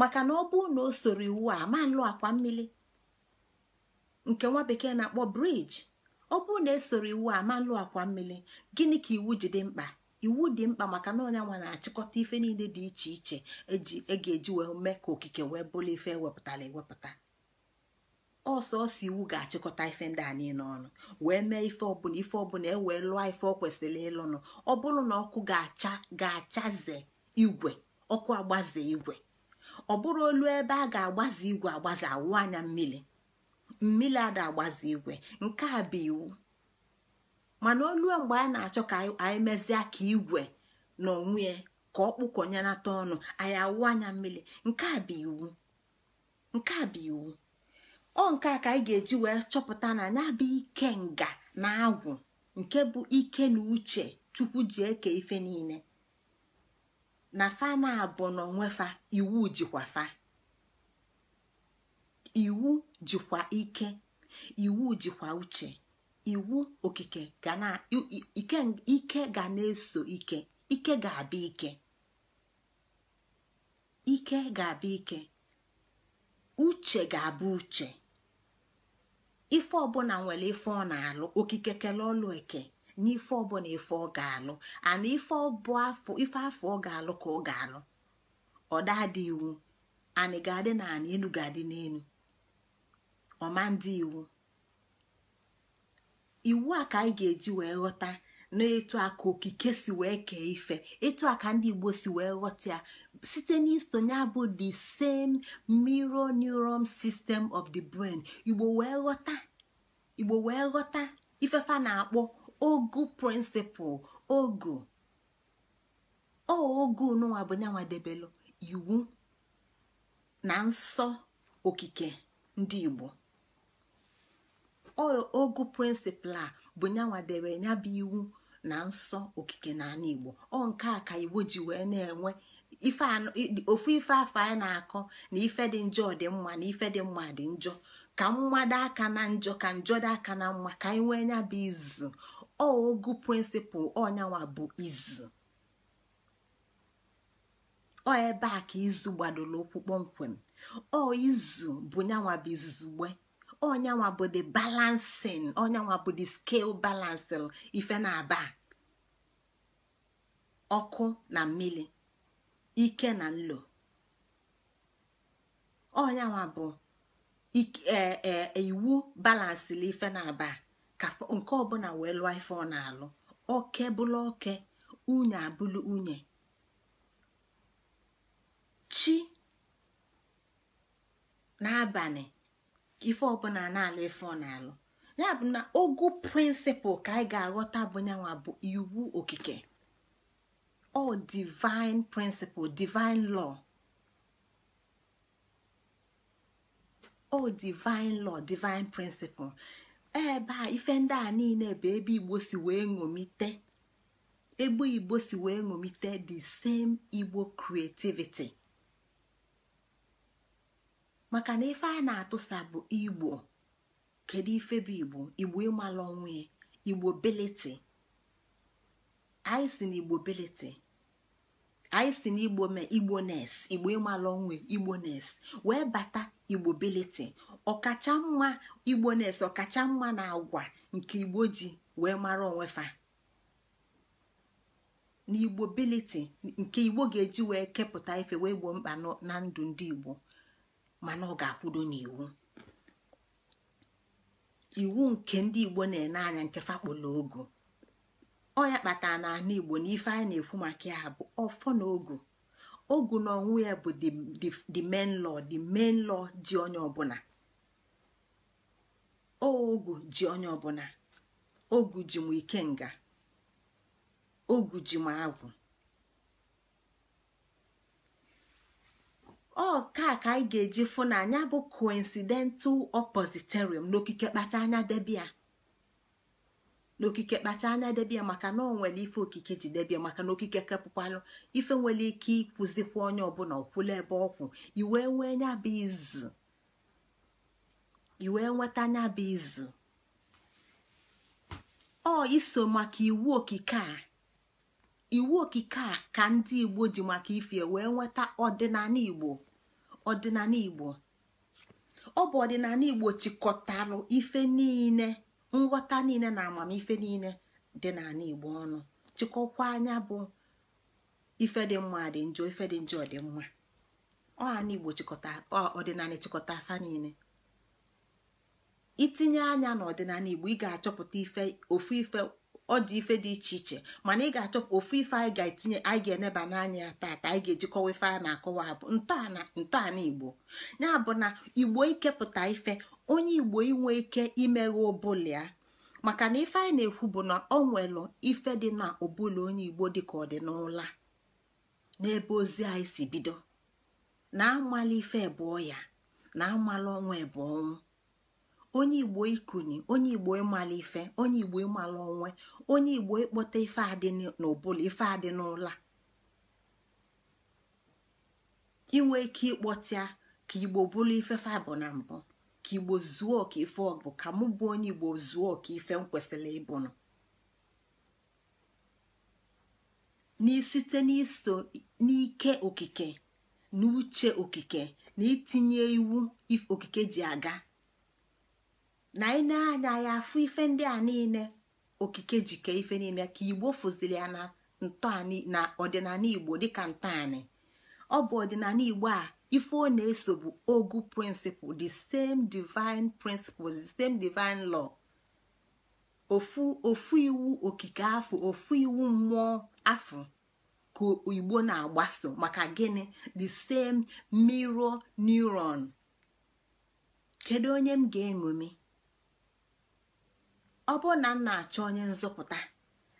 maka na ọ bụrụ na o soro iwu a ma nlụ akwa mmiri nke nwa bekee na-akpọ briji ọ bụrụ na esoro iwu a ma nlụ akwa mmiri gịnị ka iwu ji dị mkpa iwu dị mkpa maka na onye nwa na-achịkọta ife niile dị iche iche eji ega ga-eji wee mee ka okike wee bụrụ ife ewepụtara ewepụta ọsọ ọsọ iwu ga-achịkọta ife ndị a niile ọnụ wee mee ife ọbụla ife ọbụla e wee lụọ ife ọ kwesịrị ịlụnụ ọ bụrụ na ọkụ ga-acha ga-achaze igwe ọkụ agbaze igwe ọ bụrụ olu ebe a ga-agbaze igwe agbaze awụ anya mmiri mmiri ada agbaze igwe nke a bụ iwu mana olue mgbe anyị na-achọ ka anyị mezie ka igwe na onwe ka ọ kpụkọnyenata ọnụ anyị awụ anya mmiri nke a bụ iwu nke a bụ iwu ọ nke a ka anyị ga-eji wee chọpụta na anya bụ ike nga na agwụ nke bụ ike na uche chukwu ji eke ife niile na fa na abụ na onwefa iwu jikwa fa iwu jikwa ike iwu jikwa uche iwu okike ga na ike ga na-eso ike ike ga abụ ike uche ga-abụ uche ife ọbụla nwere ife ọ na-alụ okike kele ọlụ eke n'ife ọbụla ife ọ ga-alụ ana ife ọbụ afọ ọ ga-alụ ka ọ ga-alụ ọdadị iwu anị ga-adị na anị elu ga-adị n'elu ọma ndị iwu iwu a ka anyị ga-eji wee ghọta n'etu a ka okike si wee kee ife etu a ka ndị igbo si wee ghọta ya site n'isonye bụ the same mirror neuron system of the brain igbo wee ghọta igbo wee ghọta ifefa na-akpọ ogu principal, ogu ogu n'ụwa bụ nyanwa debelụ iwu na nsọ okike ndị igbo ogu prịnsịpal a bụ nyanwa ya bụ iwu na nsọ okike na ala igbo ọ nke a ka igbo ji wee na-enwe ofu ife afọ anyị na-akọ na ife dị njọ dị mma na ife dị mma dị njọ ka mmadụ aka na njọ ka njọ dị aka na mma ka anyị nwee nya bụ izu ogu prịnsịpal ọnyanwa bụ izu ọ ebe a ka izu gbadoro ụkwụ kpọmkwem ọ izu bụ nyanwa bụ izuzu onyanwa bụ the balancing onyanwa bụ the scale balancing ife na-aba ọkụ na mmiri ike na nlo onyanwa bụ e, e, e, iwu balansịrị ife na-aba ka nke ọbụla wee lụọ ife ọ na-alụ oke bụlụ oke unye abụlụ unye chi n'abalị ife ọbụla na-alụ ife ọ na-alụ ya bụ na ogu prịnsịpụl ka anyị ga-aghọta bụ nyanwa bụ iwu okike ọ divine prịnsịpụl divine law ọ divine law divine prịnsịpụl ebe a ife ndị a niile bụ ebe igbo wee ṅomite ebe igbo si wee ṅomite the same igbo creativity maka na ife a na-atụsa bụ igbo kedu ife bụ igbo igbo ịmala onwe igbo beleti anyị na igbo beleti anyị na igbo mee igbo nes igbo onwe igbo nes wee bata igbo beleti ọkacha mma igbo nes ọkacha mma na agwa nke igbo ji wee mara onwe fa igbo nke igbo ga-eji wee kepụta ife wee gboo mkpa na ndụ ndị igbo mana ọ ga akwụdo n'iwu iwu nke ndị igbo na-ene anya nke fakpolo ogu ọ ya kpatara na ana igbo na ife anyị na-ekwu maka ya bụ ọfọ na ogu ogu na ọnwụ ya bụ the main law the main ji onye ọbụla ogu ji onye ọbụla ogu ji m nga ogu ji m agwụ ọ ka ka anyị ga-eji fụ na anya bụ coincidental oppositerium n'okike kpacha anya debia n'okike kpacha anya debia maka na ọ nwere ife okike ji debia maka na okike kepụkwalụ ife nwere ike ịkwụzikwa onye ọbụla ọkwụla ebe ọkwụ iwe nwee nya bụ izu iwe nweta izu ọ iso maka iwu okike a iwu okike a ka ndị igbo ji maka ife wee nweta ọdịnala igbo ọdịnala igbo ọ bụ ọdịnala igbo chịkọtarụ ife niile nghọta niile na amamife niile dị n'ala igbo ọnụ chịkọkwa anya bụ ife dị mma dị njọ ife dị njọ dị mma ọhana igbo chịkọta ọdịnala chịkọta afa niile itinye anya n'ọdịnala igbo ị ga-achọpụta ife ofu ife ọ dị ife dị iche iche mana ị ga-achọpụ ofu ife anyị ga-etinye anyị ga-eneba n'anya ya taata anyị ga-ejikọwa ife a na-akọwa bụ ntọala igbo ya bụ na igbo ikepụta ife onye igbo inwe ike imeghe ọbụla, ya maka na ife anyị na-ekwu bụ na ọ nwere ife dị na ụbụla onye igbo dịka ọ dị n'ebe ozi anyị si bido na amala ife bụ ya na amala ọnwa bụ ọnwụ onye igbo ikuni onye igbo ịmala ife onye igbo ịmala onwe onye igbo ịkpọta ife adị n'ụbụla ife adị n'ụla inwe ike ịkpọtịa ka igbo bụrụ ife fabụ na mbụ ka igbo zuo ọka ife ọbụ ka mụ bụ onye igbo zuo ọka ife m kwesịrị ịbụnụ n'isite n'iso n'ike okike na uche okike na itinye iwu okike ji aga na anyị na-anya ya afụ ife ndị a niile okike jike ife niile ka igbo fụziri ya na na ọdịnala igbo dịka ntọanị ọ bụ ọdịnala igbo a ife ọ na-eso bụ ogu principle the same divine principles the same divine law ofu ofu iwu okike afọ ofu iwu mmụọ afọ ka igbo na-agbaso maka gịnị the same mirror neuron kedu onye m ga-eṅomi ọ bụrụ na m na-achọ onye nzọpụta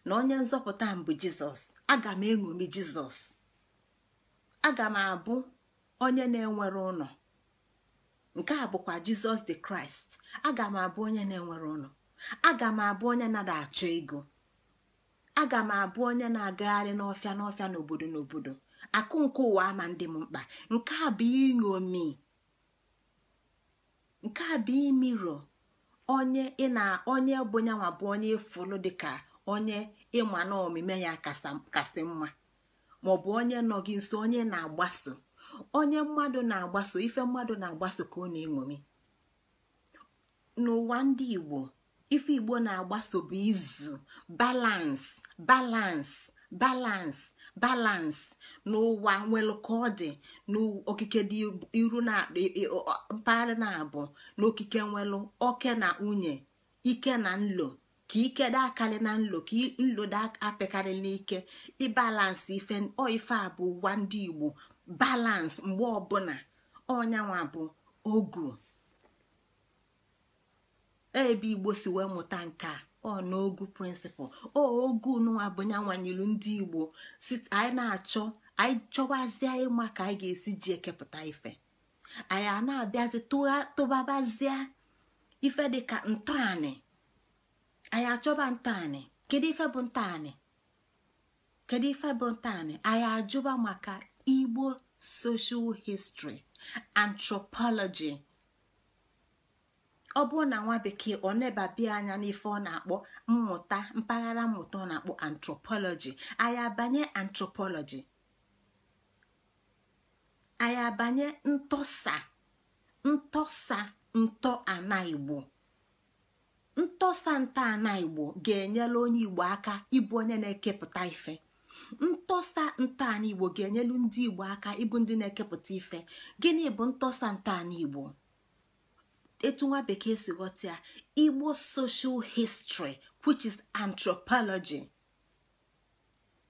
na onye nzọpụta m bụ jizọs aga m eṅomi jizọs aga m abụ onye na-enwere ụlọ nke a bụkwa jizọs di kraịst aga m abụ onye na-enwere ụlọ aga m abụ onye na achọ ego aga m abụ onye na-agagharị n'ọfịa n'ọfịa n'obodo n'obodo akụ nke ụwa ama ndị m mkpa nke a bụ iṅomi nke a bụ imiro onye ị na onye bụ nyanwa bụ onye ịfụlụ dịka onye ịma na ya kasị mma maọbụ onye nọ gị nso onye na-agbaso onye mmadụ na-agbaso ife mmadụ na-agbaso ka ọ na-eṅomi n'ụwa ndị igbo ife igbo na-agbaso bụ izu balans balans balans balans n'ụwa nwelụ ka ọ dị n'okike dị iru na mpaghara na-abụ n'okike nwelụ oke na nwunye ike na nlo ka ike dị akarị na nlo ka nlo dị apịkarị n'ike ịbalansị ife ọ ife a bụ ụwa ndị igbo balansi mgbe ọbụla ọnyanwa bụ ogu e ebe igbo si wee mụta nke a ọ n'ogu prịnsịpal ogu n'ụwa bụ nyanwanyilu ndị igbo anyị na-achọ anyị chọwazie ịma ka anyị ga-esi ji ekepụta ife anyị a na-abịazi tụbabazie ife dịka ntọanị anyị achọba ntọanị kedu ife bụ ntọanị kedu ife bụ ntọanị anyị ajụba maka igbo soshal history anthropology ọ bụrụ na nwa bekee ọ nebabia anya n'ife ọ na-akpọ mmụta mpaghara mmụta ọ na-akpọ anthropology anyị abanye anthropology anyị abanye ntọsa ntọsa ntọ ana igbo ntọsa nta ana igbo ga-enyela onye igbo aka ịbụ onye na-ekepụta ife ntọsa igbo ga-enyelu ndị igbo aka ịbụ ndị na-ekepụta ife gịnị bụ ntọsa ntọala igbo etu nwa bekee si ghọta ya igbo social histri which is anthropology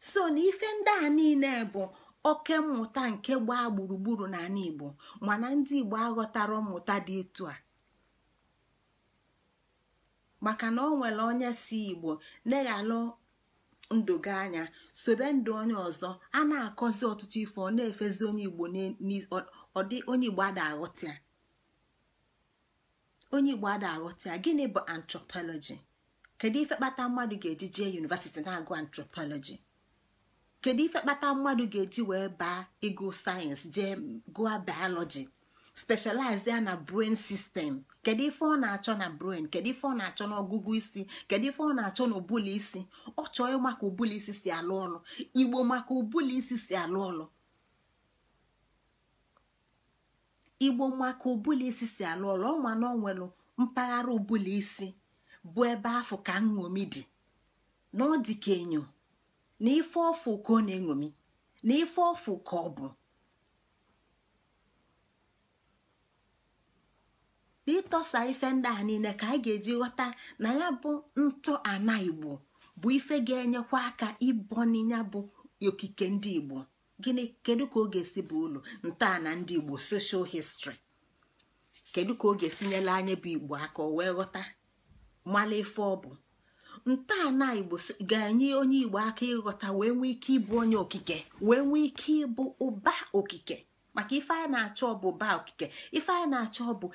so na ife ndị a niile bụ oke mmụta nke gbaa gburugburu n'ala igbo mana ndị igbo aghọtara mmụta dị etu a maka na ọ nwere onye si igbo neghalụ ndụ gị anya sobe ndụ onye ọzọ a na-akọzi ọtụtụ ife ọ na-efezi onye igbo ọdị onye igbo ada aghọta onye igbo ada gịnị bụ antropology kedu ife kpata mmadụ ga-eji jee yunivasiti na-agụ antropology kedu ife kpata mmadụ ga-eji wee baa ịgụ sayensị jee gụọ biology specialize ya na brain system kedu ife ọ na-achọ na brain kedu ife ọ na-achọ na ọgụgụ isi kedu ife ọ na-achọ na ụbụla isi ọ chọọ maka ụbụla isi si alụ ọlụ igbo maka ụbụla isi si alụ ọlụ igbo maka ụbụla isi si alụ ọlụ ọma na onwelu mpaghara ụbụla isi bụ ebe afọ ka nṅomi dị na ọ dị ka enyo na ife ọfụ ka ọ na-eṅomi na ife ọfụ ka ọ bụ ịtọsa ife ndị a niile ka anyị ga-eji ghọta na ya bụ ntọ ana igbo bụ ife ga-enyekwa aka ịbọ n'inya bụ okike ndị igbo gịnị kedu ka ọ ga-esi bụ ụlọ ntọala ndị igbo soshal histri kedu ka ọ ga nyere anya bụ igbo aka o wee ghọta mala ife ọ bụ ntọala igbo ga-enye onye igbo aka ịghọta wee nwee ike ịbụ onye okike wee nwee ike ịbụ ụba okike maka ife anyị na-achọ ọ bụ ụba okike ife anyị na-achọ ọ bụ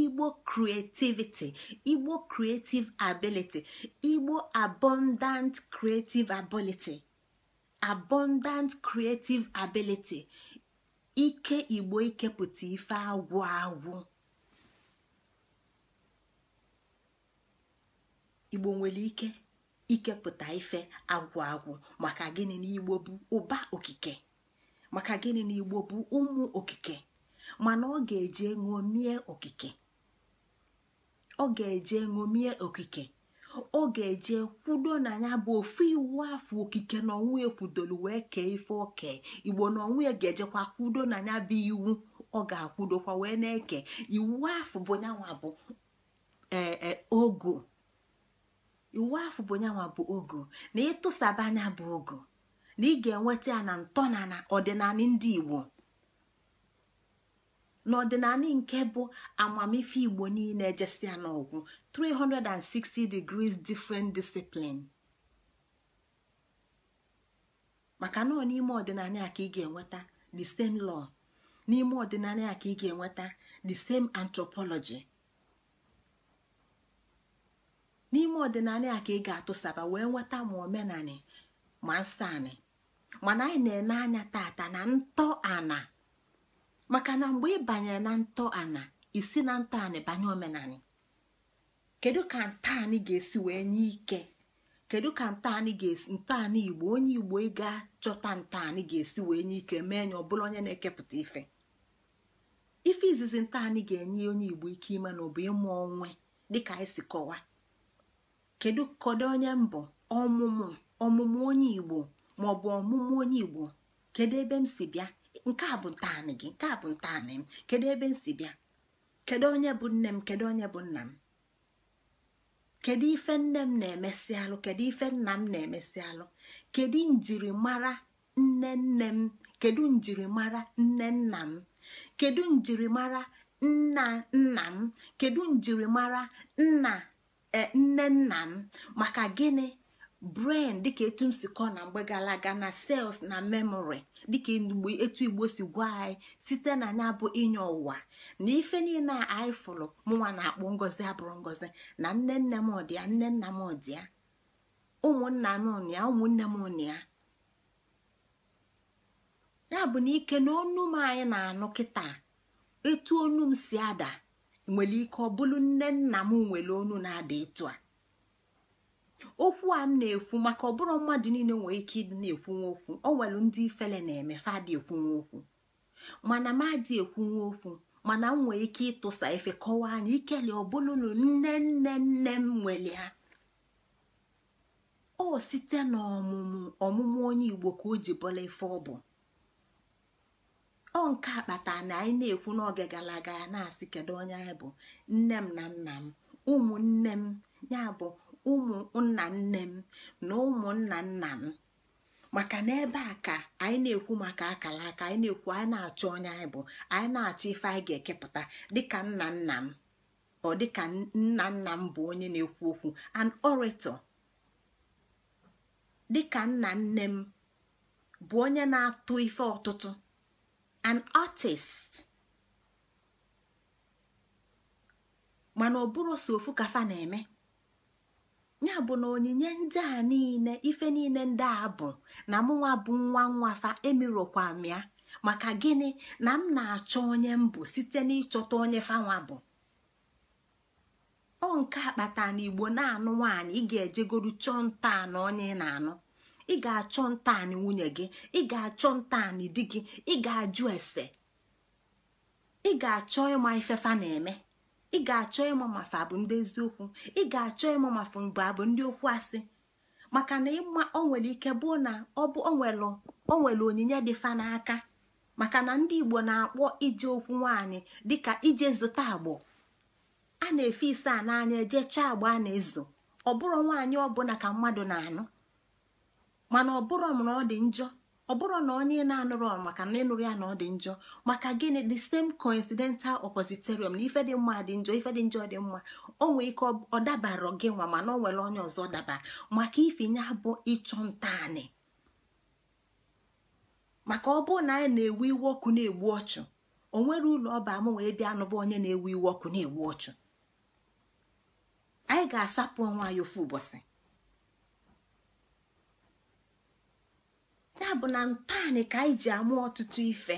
igbo creativity igbo creative ability igbo abundant creative ability abundant creative ability ike igbo ikepụta ife agwụ agwụ igbo nwere ike ikepụta ife agwụ agwụ maka gịnị na igbo bụ ụba okike maka gịnị na igbo bụ ụmụ okike mana ọ ga-eje ṅomie okike ọ ga-eje ṅomie okike ọ ga-eje kwudo na ya bụ ofu iwu afọ okike na ọnwụ ekwudolu wee kee ife oke igbo na ọnwụ ya ga-ejekwa kwudo na ya bụ iwu ọ ga-akwudokwa wee na-eke iwu afọ bụ nyanwa bụ eh, eh, ogo iwu afọ bụ nyanwa bụ ogo na ịtụsaba anya bụ ogo na ị ga-enweta ya na ntọnala ọdịnala ndị igbo n'ọdịnala nke bụ amamife igbo niile ejesịa n'ọgwụ 360 degrees different discipline maka nọ n'ime ọdịnala a ka ị ga-enweta the same law n'ime ọdịnala a ka ị ga-enweta the same anthropology n'ime ọdịnala ya ka ị ga-atụsaba wee nweta ma omenani ma nsani mana anyị na-ene anya tata na ntọ ana maka na mgbe ị banyere na ntọ ana isi na ntọ ana banye omenani kedu ka ntọani ga-esi wee nye ike kedu ka ntọani ga-esi ntọani igbo onye igbo ị ga-achọta ntọani ga-esi wee nye ike mee ọ bụla onye na-ekepụta ife ife izizi ntọani ga-enye onye igbo ike ime na ọ bụ ịmụ onwe dịka anyị si kọwaa. kedu kọdụ onye mbụ ọmụmụ ọmụmụ onye igbo ma ọ bụ ọmụmụ onye igbo kedu ebe m si bịa nke a bụ ntaanị gị nke a bụ ntaanị m kedu ebe m si bịa kedu onye bụ nne m kedu onye bụ nna m kedu ife nne m na-emesi alụ kedu ife nna m na-emesi alụ kedu njirimara nne nne m kedu njirimara nne nna m kedu njirimara nna nna m kedu njirimara nna E, nne nna m maka gịnị brain dịka etu m si kọ na mgbe gara aga na sels na memory dịka etu igbo si gwa anyị site na anya bụ inye ụwa na ife niile a anyị fụrụ mụnwa na akpụ ngozi abụrụ ngozi na nne nne m dị ya nne nna m dị ụmụnna m ụnụ ụmụnne m ụnụ ya bụ na ike na ọnụ m anyị na-anụ kịta etu onu m si ada nwere ike ọ nne nna m nwere onu na-ada ịtụ a okwu a m na-ekwu maka ọbụrụ mmadụ niile nwere ike ịdị na-ekwunwe okwu ọ nwere ndị ifele na-eme fadị ekwunwe okwu mana m adị ekwunwe okwu mana m nwere ike ịtụsa efe kọwaa anya ikele ọbụlụnụ nne nne nne m nwere ha o site n'ọmụmụ ọmụmụ onye igbo ka o ji bọla ife ọ bụ ọ nke akpata na anyị na-ekwu n'oge gara aga ya na-asị kedu onye anyị bụ nne m na nna m ụmụnne m ya bụ ụmụ nna nne m na ụmụnna nna m maka na ebe a ka anyị na-ekwu maka akara aka anyị na-ekwu anyị na-achọ onye anyị bụ anyị na-achọ ife anyị ga-ekepụta dịka nna nna m ọ dịka nna nna m bụ onye na-ekwu okwu an orator dịka nna nne m bụ onye na-atụ ife ọtụtụ an artist mana ọ bụrụ so ofu kafa na-eme ya bụ na onyinye ndị a niile ife niile ndị a bụ na mụnwa bụ nwa nwafa emirokwa m ya maka gịnị na m na-achọ onye m bụ site n'ịchọta onye fanwa bụ ọ nke akpata na igbo na-anụ nwaanyị ị ga-ejegodu chọọ nta na onye ị na-anụ ị ga-achọ ntaanị nwunye gị ị ga-achọ ntaanị di gị ị ga-ajụ ese ị ga-achọ ịma ifefa na-eme ị ga-achọ ịma mafa bụ ndị eziokwu ị ga-achọ ịma mafa mbụ abụ ndị okwu asị maka na ịma o nwere ike bụ na ọ bụ o nwere onyinye dị fa n'aka maka na ndị igbo na-akpọ ije okwu nwaanyị dịka ije zụta agbọ a na-efe ise a n'anya eje chaa agba a na-ezo ọ bụrụ nwaanyị ọbụla ka mmadụ na-anụ mana ọ bụrụ na ọ dị njọ ọ bụrụ na onye na-anụrụ maka na ịnụrụ ya na ọ dị njọ maka gịnị the same coincidental oppositorium na ife dị mma dị njọ ife dị njọ dị mma o nwee ike ọ dabara gị nwa mana o nwere onye ọzọ dabara maka ifinye bụ ịchọ ntaanị maka ọ bụrụ na anyị na-ewu iwe ọkụ na-egbu ọchụ o nwere ụlọ ọba m wee bịa anụba onye na-ewu iwe ọkụ na-egbu ọchụ anyị ga-asapụ onwe anyị ofu ụbọchị ya bụ na ntaanị ka anyị ji amụ ọtụtụ ife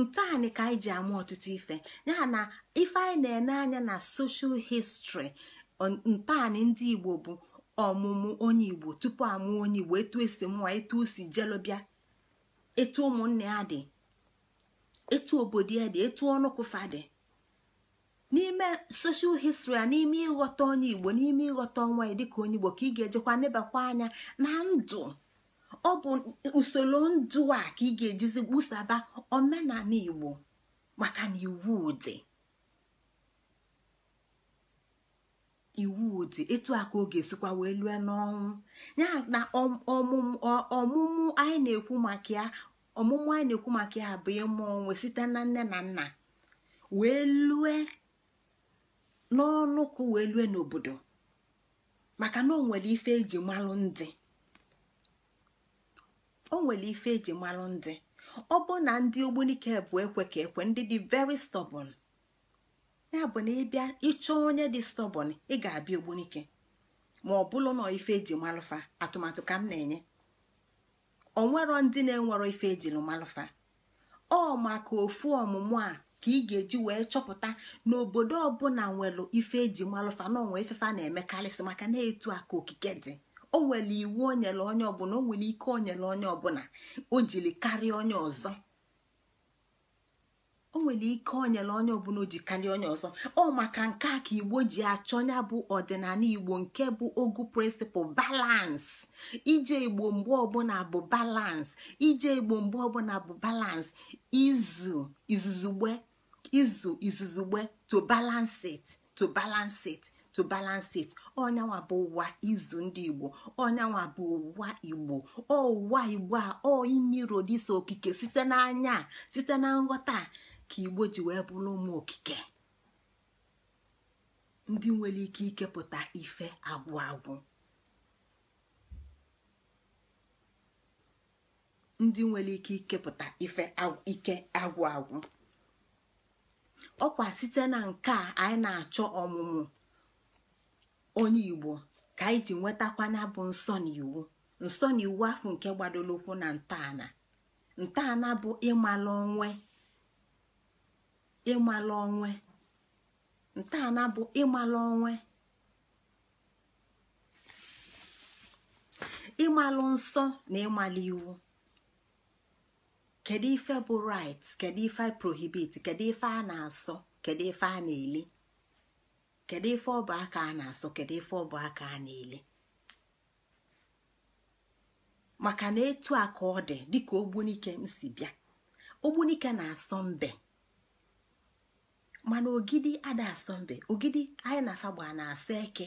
ntaanị ka anyị ji amụ ọtụtụ ife ya na ife anyị na-ene anya na social history ntaanị ndị igbo bụ ọmụmụ onye igbo tupu amụ onye igbo etu esi mụa etu o jelobịa etu ụmụnne ya dị etu obodo ya dị etu ọnụkụfa dị n'ime soshal histri a n'ime ịghọta onye igbo n'ime ịghọta ọnwa ya dịka onye igbo ka ị ga-ejekwa nebakwa anya na ndụ ọ bụ usoro ndụ a ka ị ga-ejizi kpụsaba omenala igbo maka na iwu dị iwu dị etu a ka ọ ga wee lue n'ọnwụ ya na ọmụmụ anyị na-ekwu maka ya ọmụmụ anyị na-ekwu maka bụ ịmụ onwe site na nne na nna wee lue n'ọnụkụ wee lue n'obodo maka na o nwere ife eji malụ ndị o nwere ife eji malụ ndị ọ bụ na ndị ogbunike bụ ekwe ka ekwe ndị dị very stubborn ya bụ na ịbịa ịchọọ onye dị stubborn ị ga-abịa ogbunike ma ọ bụrụ na ife eji malụfa atụmatụ ka m na-enye onwero ndị na-enwero ife ejiru malụfa ọ maka ofu ọmụmụ a ka ị ga-eji wee chọpụta na obodo ọbụla nwere ife eji malụfa na onwe ifefa na-emekarịsị maka na-etu aka okike dị o nwere iwu o nyere onye ọbụla o nwere ike o nyere onye ọbụla o jiri karịa onye ọzọ o nwere ike o nyere onye ọbụla o ji karịa onye ọzọ ọ maka nke a ka igbo ji achọ ya bụ ọdịnala igbo nke bụ ogu prịnsịpụl balans ije igbo mgbe ọbụla bụ balans ije igbo mgbe ọbụla bụ balans izu izuzugbe izu izuzugbe to balance it to balance it to balance it onyanwa bụ ụwa izu ndị igbo onyanwa bụ ụwa igbo uwa igbo a ọ imiro dịsa okike site n'anya site na nghọta ka igbo ji wee bụrụ ụmụ okike ndị nwere ike ikepụta ife agwụ agwụ ndị nwere ike ikepụta ife ike agwụ agwụ ọkwa site na nke a anyị na-achọ ọmụmụ onye igbo ka anyị ji nwetakwana bụ nsọ na iwu nsọ na iwu afọ nke gbadoro ụkwụ na ntọala ntọala bụ ịmala onwe ịmala onwe ntọala bụ ịmala onwe ịmalụ nsọ na ịmalụ iwu kedu ife bụ right kedu ife prohibit kedu ife a na-asọ kedu ife a na-eli kedu ife bụ aka a na-asọ kedu ife bụ aka a na-ele maka na etu a ka ọ dị dịka ogbunike m si bịa ogbunike na-asọ mbe mana ogidi ada asọ mbe ogidi anyị na fagba na asọ eke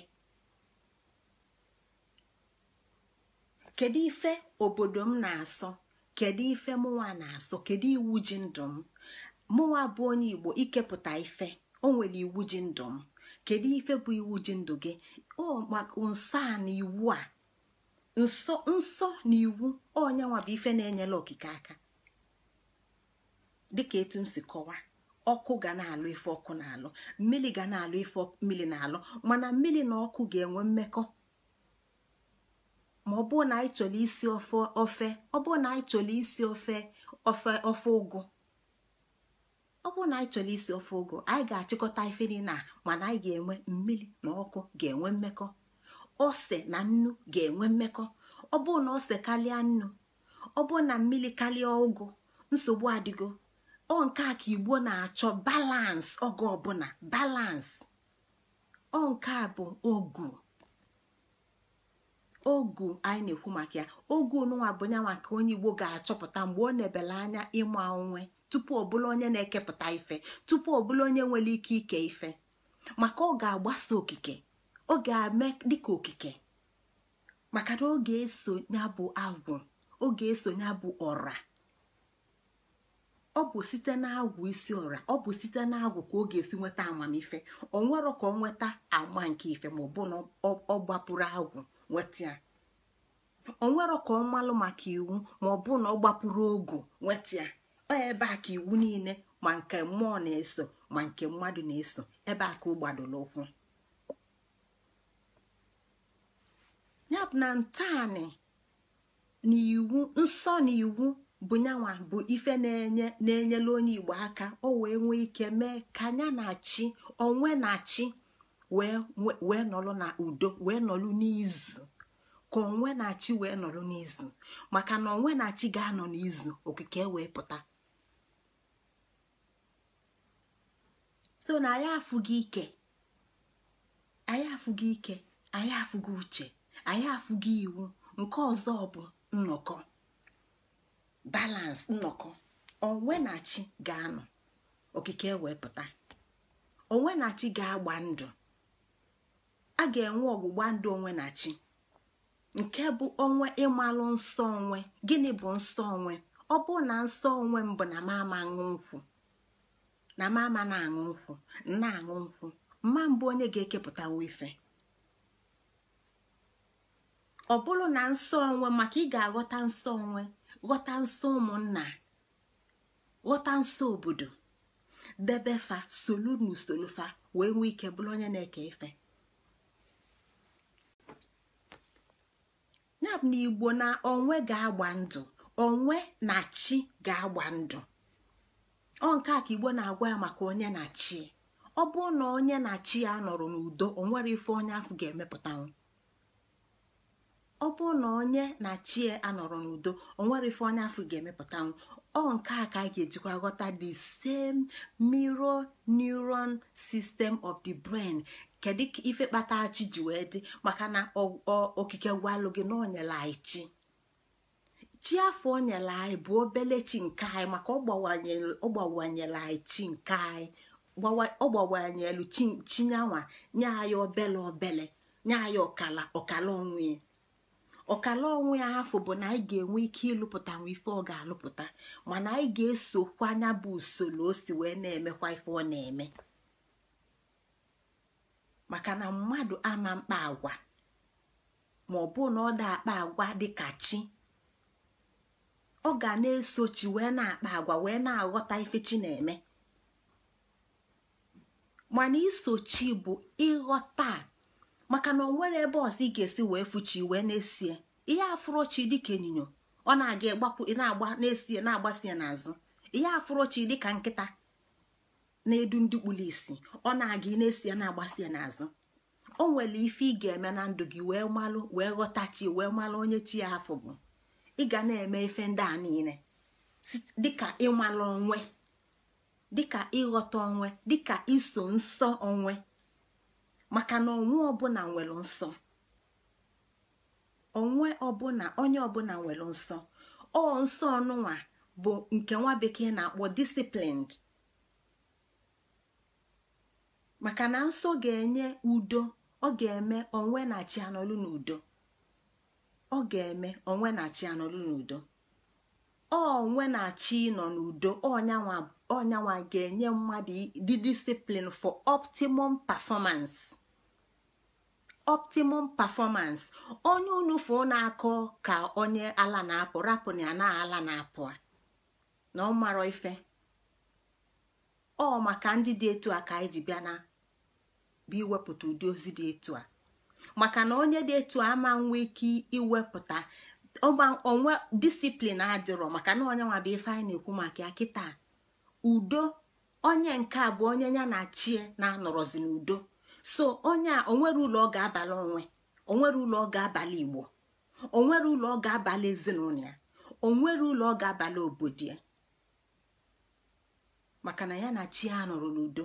kedu ife obodo m na-asọ kedu ife mụnwa na-asọ kedu iwu ji ndụ m mụnwa bụ onye igbo ikepụta ife o iwu ji ndụ m kedu ife bụ iwu ji ndụ gị ọ nsọ a na iwu a nsọ nsọ na iwu onyanwa bụ ife na-enyela okike aka dịka etu m si kọwa ọkụ ga na-alụ ife ọkụ na-alụ mmiri ga na-alụ ife mmiri na-alụ mana mmiri na ọkụ ga-enwe mmekọ ma ọ bụrụ na anyị chọrọ isi ofe ọ bụrụ chọrọ isi ofe ofe ofe ọ bụrụ na anyị chọrọ isi ofe ụgụ anyị ga-achịkọta ife niile mana anyị ga-enwe mmiri na ọkụ ga-enwe mmekọ ose na nnu ga-enwe mmekọ ọ bụrụ na ose karịa nnu ọ bụrụ na mmiri karịa ụgụ nsogbu adịgo ọ nke a ka igbo na-achọ balans oge ọbụla balans ọ nke a bụ ogu ogu anyị na-ekwu maka ya ogu n'ụwa bụ nyanwa ka onye igbo ga-achọpụta mgbe ọ na-ebele anya ịma onwe tupu ọ bụla onye na-ekepụta ife tupu ọ bụla onye nwere ike ike ife maka ọ ga-agbasa okike ọ ga-eme dịka okike maka na ọ ga-eso ya bụ agwụ ọ eso ya bụ ọra ọ bụ site n'agwụ isi ọra ọ bụ site n'agwụ ka ọ ga-esi nweta amamife ọ nwere ka ọ nweta ama nke ife ma ọ bụ na ọ gbapụrụ agwụ nweta ya ọ nwere ka ọ malụ maka iwu ma ọ bụ na ọ gbapụrụ ogu nweta ya ebe a ka iwu niile ma nke mmụọ na-eso ma nke mmadụ na-eso ebe a ka ọ ụkwụ ya na ntaanị n'iwu iwu nsọ na iwu bụ bụ ife na-enye na-enyela onye igbo aka ọ wee nwee ike mee ka anya na chi onwe na chi wee nọrọ na udo wee nọrọ n'izu ka onwe na chi wee nọrọ n'izu maka na onwe na chi ga-anọ n'izu okike wee pụta so na anyị afụghị ike anyị afụghị ike anyị afụghị uche anyị afụghị iwu nke ọzọ bụ nnọkọ balance nnọkọ onwenachi ga-anọ okike wepụta onwenachi ga-agba ndụ a ga-enwe ọgbụgba ndụ onwenachi nke bụ onwe ịmalụ nsọ onwe gịnị bụ nsọ onwe ọ bụ na nsọ onwe mbụ na m ama nkwụ na mama na-aṅụ nkwụ na-aṅụ nkwụ mma mbụ onye ga-ekepụta nwa ife ọ bụrụ na nsọ onwe maka ị ga-aghọta nsọ onwe ghọta nsọ ụmụnna ghọta nsọ obodo debe fa solu na fa wee nwee ike bụrụ onye na-eke ife yabụ na igbo na onwe ga-agba ndụ onwe na chi ga-agba ndụ ọ nke a ka igbo na-agwa ya maka onye na chi ọ bụrụ na onye na chi ya nọrọ n'udo o nwere ife onye afọ ga-emepụtanwu ọ na onye na chi ya e anọrọ n'udo o nwere ife onye afọ ga emepụtanwụ ọ nke a ka a ga-ejikwa ghọta the same mirror neuron system of the brain kedu ife kpata chi ji wee dị maka na okike gwalụ gị na onyela anyị chi chi afọ o nyere anyị bụ obele chi nke anyị maka ọ anyị chi nke anyị ọ gbawanyelu chinyanwa nye anyị obele obele nye anyị ọkala ọkala onwe ya ọkala onwe ya afọ bụ na anyị ga-enwe ike ịlụpụta nwa ife ọ ga-alụpụta mana anyị ga-esokwa anya bụ usoro o si wee na-emekwa ife ọ na-eme maka na mmadụ ama mkpa agwa ma ọ na ọ da akpa agwa dịka chi ọ ga na-esochi wee na-akpa agwa wee na-aghọta ife chi na-eme mana isochi bụ ịghọta maka na o nwere ebe ọzọ ị ga-esi wee fuchi wee na-esie ihe afụrochi dịka ịnyịnya ọ na-aga ịgbapụ na-agba na-esie na-agbasie n'azụ ihe afụrochi dịka nkịta na-edu ndị kpụrụ isi ọ na-aga ị na-esie na-agbasie n'azụ o nwere ife ị ga-eme na ndụ gị wee malụ wee chi wee malụ onye chi ya afọ bụ ị ga na-eme efe ndị a niile dịka ịmala onwe dịka ịghọta onwe dịka iso nsọ onwe maka na onwe ọbụla nwere nsọ onwe ọbụla onye ọbụla nwere nsọ ọ nsọ ọnụnwa bụ nke nwa bekee na-akpọ disiplined. maka na nsọ ga-enye udo ọ ga-eme onwe na chi anọlụ n'udo ọ ga-eme onwe na chi anọrụ n'udo onwe na chi nọ n'udo ọnyanwa ga-enye mmadụ dị disiplin for optimum performance optimum performance onye na-akọ ka onye ala na-apụ rapụ na ya na ala na-apụ na ọ marọ ife ọ maka ndị dị etu a ka anyị ji bịa na bụ iwepụta ụdị ozi dị etu a maka na onye dị etu ama nwe ike iwepụta onwe disiplin adịrọ maka na onye nwa ife anyị na-ekwu maka ya kịta udo onye nke a bụ onye ya na chie na-anọrọzi n'udo so onye a onwere ụlọ ọ ga-abalị onwe onwere ụlọ ọ ga-abalị igbo onwere ụlọ ọ ga-abalị ezinụlọ ya onwere ụlọ ọ abalị obodo ya maka na ya na chi a nọrọ n'udo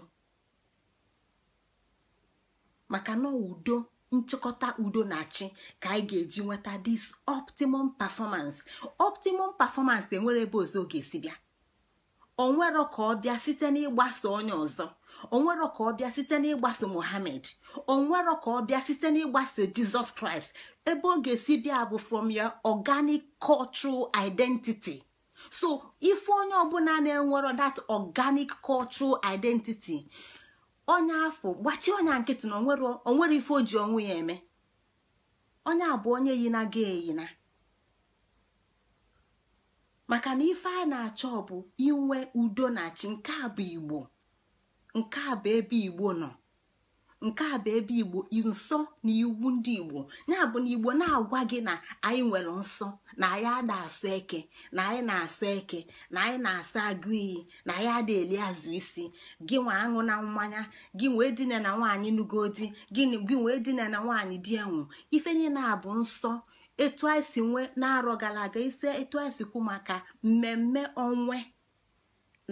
maka na udo nchịkọta udo na chi ka anyị ga-eji nweta this optimum performance optimum performance enwere ebe ọzọ ọ ga-esi bịa onwero ka ọ bịa site n'ịgbaso onye ọzọ onwero ka ọ bịa site n'ịgbaso O onwero ka ọ bịa site n'ịgbaso Jizọs Kraịst ebe ọ ga-esi bịa bụ from your organic cultural identity so ife onye ọbụla na-enwero that organic cultural identity onye afọ gbachie onye nkịtị na onwere ife o ji onwe ya eme onye bụ onye yina na ga eyina maka na ife a na-achọ bụ inwe udo na chi nke a bụ igbo nke a bụ ebe igbo nọ nke a bụ ebe igbo nsọ na iwu ndị igbo ya bụ na igbo na-agwa gị na anyị nwere nsọ na anyị ada asụ eke na anyị na-asụ eke na anyị na-asa agụ iyi na anyị ada eli azụ isi gị nwe aṅụ na mmanya gị nwee dine na nwaanyị nugo gị nwee dine na nwaanyị di enwu ife niile a bụ nsọ etu anyị si nwee na-arọ gara aga ise etu anyị si maka mmemme onwe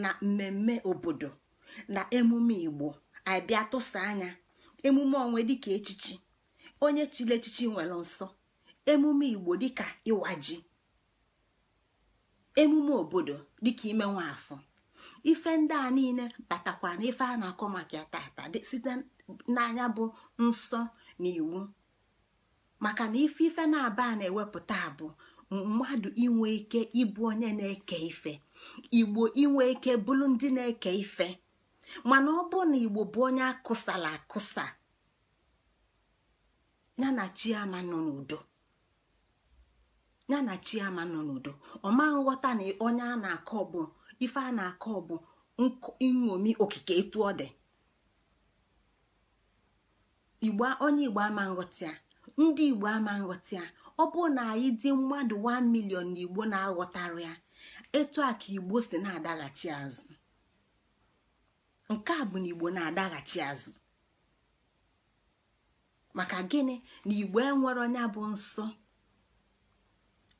na mmemme obodo na emume igbo anyị bịa tụsa anya emume onwe dịka echichi onye chile echichi nwere nsọ emume igbo dịka ịwa ji emume obodo dịka ime nwafọ ife ndị a niile batakwa na ife a na-akọ maka ya tata site n'anya bụ nsọ na iwu maka na ife ife na-aba na-ewepụta bụ mmadụ inwe ike ịbụ onye na-eke ife igbo inwe ike bụrụ ndị na-eke ife mana ọ bụ na igbo bụ onye akụsala akụsa ya na chiama nọ n'udo ọma nghọta na onye a na-akọ bụ ife a na-akọ bụ nṅomi okike etu ọ dị onye igbo ama nghọta ndị igbo ama nghọta ọ bụ na anyị dị mmadụ 1 milion na igbo na-aghọtara ya etu a ka igbo si na-adaghachi azụ nke a bụ na igbo na-adaghachi azụ maka gịnị na igbo enwere onye bụ nsọ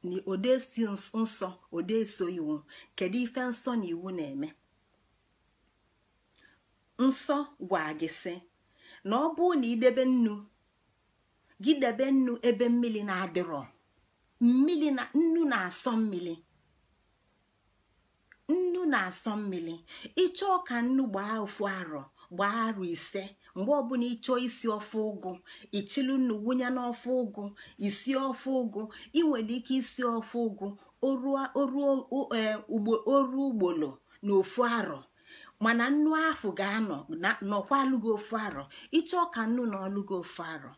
na odesi nsọ odeso iwu kedu ife nsọ na iwu na-eme nsọ gwa gị sị na ọ bụ na idebe nnu gị debe nnu ebe mmiri na-adịrọ mmiri na nnu na-asọ mmiri nnu na-asọ mmiri ịchọ ọka nnu gbaa ofu arọ gbaa arọ ise mgbe ọbụla ịchọọ isi ọfụ ụgụ ichilu nnu wụnye n'ofe ụgụ isi ọfụ ụgụ ị nwere ike isi ọfụ ụgụ oru ugbolo na ofu arọ mana nnu ahụ ga-anọ nọkwa alụghị ofu arọ ịchọ ọka nnu na ọlụghị ofu arọ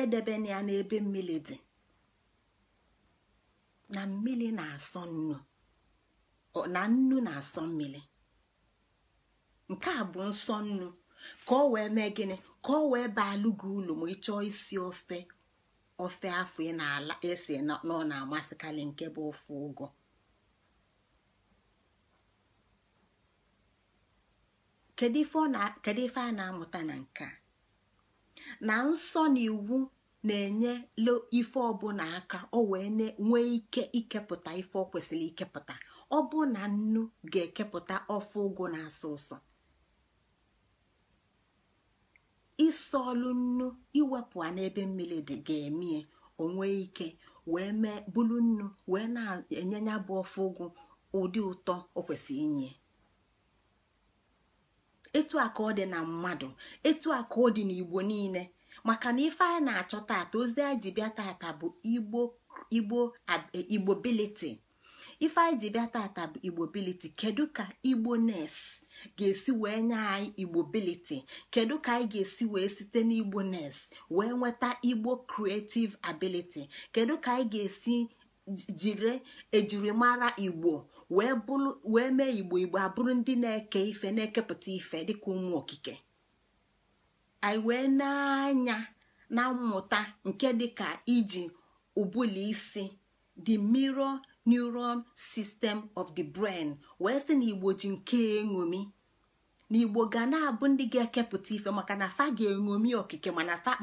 Edebe ya n'ebe mmiri dị na mmiri na-asọ nnu na nnu na-asọ mmiri nke a bụ nsọ nnu ka ọ wee mee gịnị ka ọ wee baa gị ụlọ m ị chọọ isi ofe ofe afọ ị na-ala esi na ọ na-amasịkarị nke bụ ofe ụgwọ kedu ife a na-amụta na nke a na nsọ na iwu na-enye ife ọbụla aka o wee nwee ike ikepụta ife ọ kwesịrị ikepụta ọ bụ na nnu ga-ekepụta ofe ụgụ na asụsụ ụsọ ịsọ nnu iwepụ a n'ebe mmiri dị ga-emie onwe ike wee mee bulu nnu wee na-enye ya bụ ofe ụgụ ụdị ụtọ o kwesịrị inye etu a ọ dị na mmadụ etu a ọ dị n'igbo niile maka na ife anyị na-achọ taata ozi anyị ji bịa taata bụ igbo igbo igbo ife anyị ji bịa tata bụ igbo biliti kedu ka igbo nes ga-esi wee nye anyị igbo biliti kedu ka anyị ga-esi wee site n'igbo nes wee nweta igbo creative ability kedu ka anyị ga-esi jiri ejirimara igbo wee mee igbo igbo abụrụ ndị na-eke ife na-ekepụta ife dịka ụmụ okike anyị wee na-anya na mmụta nke dịka iji ụbụlụ isi the mirror neuron system of the brain wee sị na igbo ji nke eṅomi na igbo ga na-abụ ndị ga-ekepụta ife maka na fa ga-eṅomi okike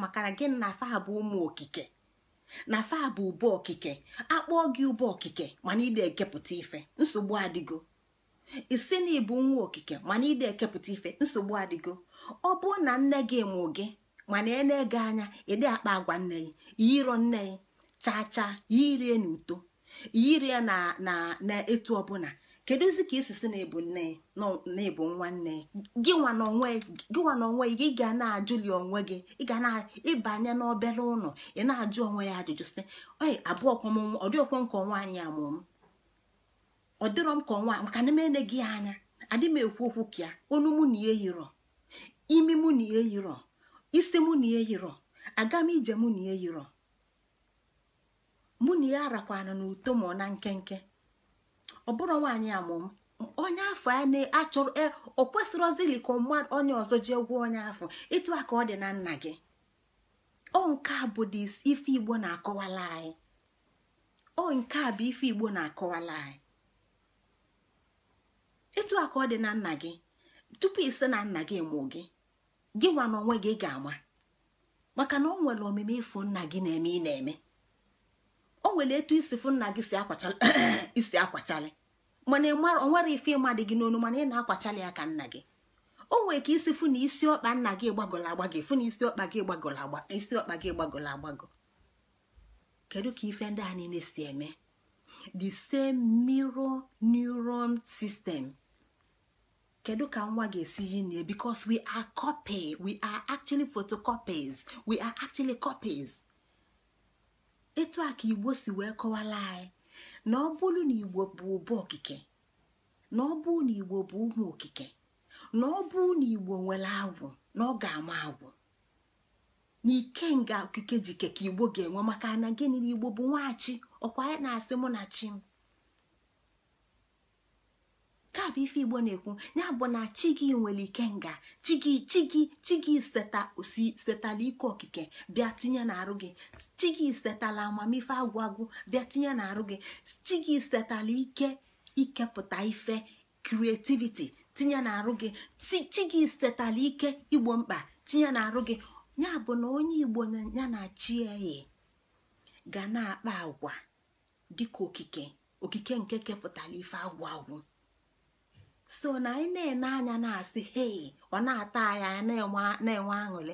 maka na gị na fa bụ ụmụ okike na fa bụ ụbọ okike akpọọ gị ụbọ okike mana ịda ekepụta ife nsogbu adịgo isi na ịbụ nwa okike mana ide ekepụta ife nsogbu adịgo ọ bụ na nne gị mụ gị mana ene ege anya ịdị akpa agwa nne gị yiro nne gị chacha ya irie n'uto yiri ya na etu ọbụla kedụzi ka isisi na-ebu nne na-ebu nwanne gị nwa n'onwe gị ga na-ajụli onwe gị ị ga na-ịbanye n'obere ụlọ ị na-ajụ onwe ya ajụjụ sị oyi abụọ ọdịọkwọ nke ọnwa anyị amụm ọ dịrọ m ka ọnwa maka na mene gị anya adị m ekwu okwu ka ya onu mụ na ihe yirọ imi mụ na ihe yirọ isi mụ na ihe yirọ aga m ije mụ na ihe yirọ mụ na ya rakwana n'uto ma na nkenke ọ bụrụ nwaanyị amụm onye afọ a na-achọrọ ọ e, kwesịrọzili ka mmadụ onye ọzọ jee gwụọ onye afọ ịtụ a ka ọ dị na nna gị ọ nke a bụ dị ife igbo na-akọwala anyị nke a bụ ife igbo na-akọwala anyị ịtụ a ka ọ dị na nna gị tupu ise na nna gị mụ gị gị nwa na onwe gị ga-ama maka na o nwere omume ịfụ nna gị na-eme ị na-eme o nwere etu isi fụ nna gị isi akwachali mana o nwere ife ịma dị gị n'onu mana ị na-akwachali ya ka nna gị o nwere ka isi fụ na isi ọkpa nna gị gbagọrọ agbagọ fụ na isi ọkpa gị gbagọrọ agba isi ọkpa gị gbagọrọ agbagọ kedu ka ife ndị a niile si eme the same mirror neuron system kedu ka nwa ga-esi yi na because we are copy we are actually photocopies we are actually copies etu a ka igbo si wee kọwara anyị na ọ bụrụ na igbo bụ ụba okike na ọ bụrụ na igbo bụ ụmụ okike na ọ bụrụ na igbo nwere agwụ na ọ ga-ama agwụ na ike nga okike ji ka igbo ga-enwe maka na gịnị na igbo bụ nwachi ọkwa ya na-asị mụ na chi ka bụ ife igbo na-ekwu ya bụ na chi gị nwere ike nga chi gị chi gị osi setala ike okike bịa tinye n'arụ gị chi gị setala amamife agwụ agwụ bịa tinye n'arụ gị chi gị setala ike ikepụta ife kreativiti tinye n'arụ gị chi gị setala ike igbo mkpa tinye n'arụ gị ya bụ na onye igbo ya na chi eyi ga na-akpa agwa dịka okike okike nke kepụtara ife agwụ agwụ so na anyị na-ene anya na-asị hei ọ na-ata anyị anya na-enwe aṅụrị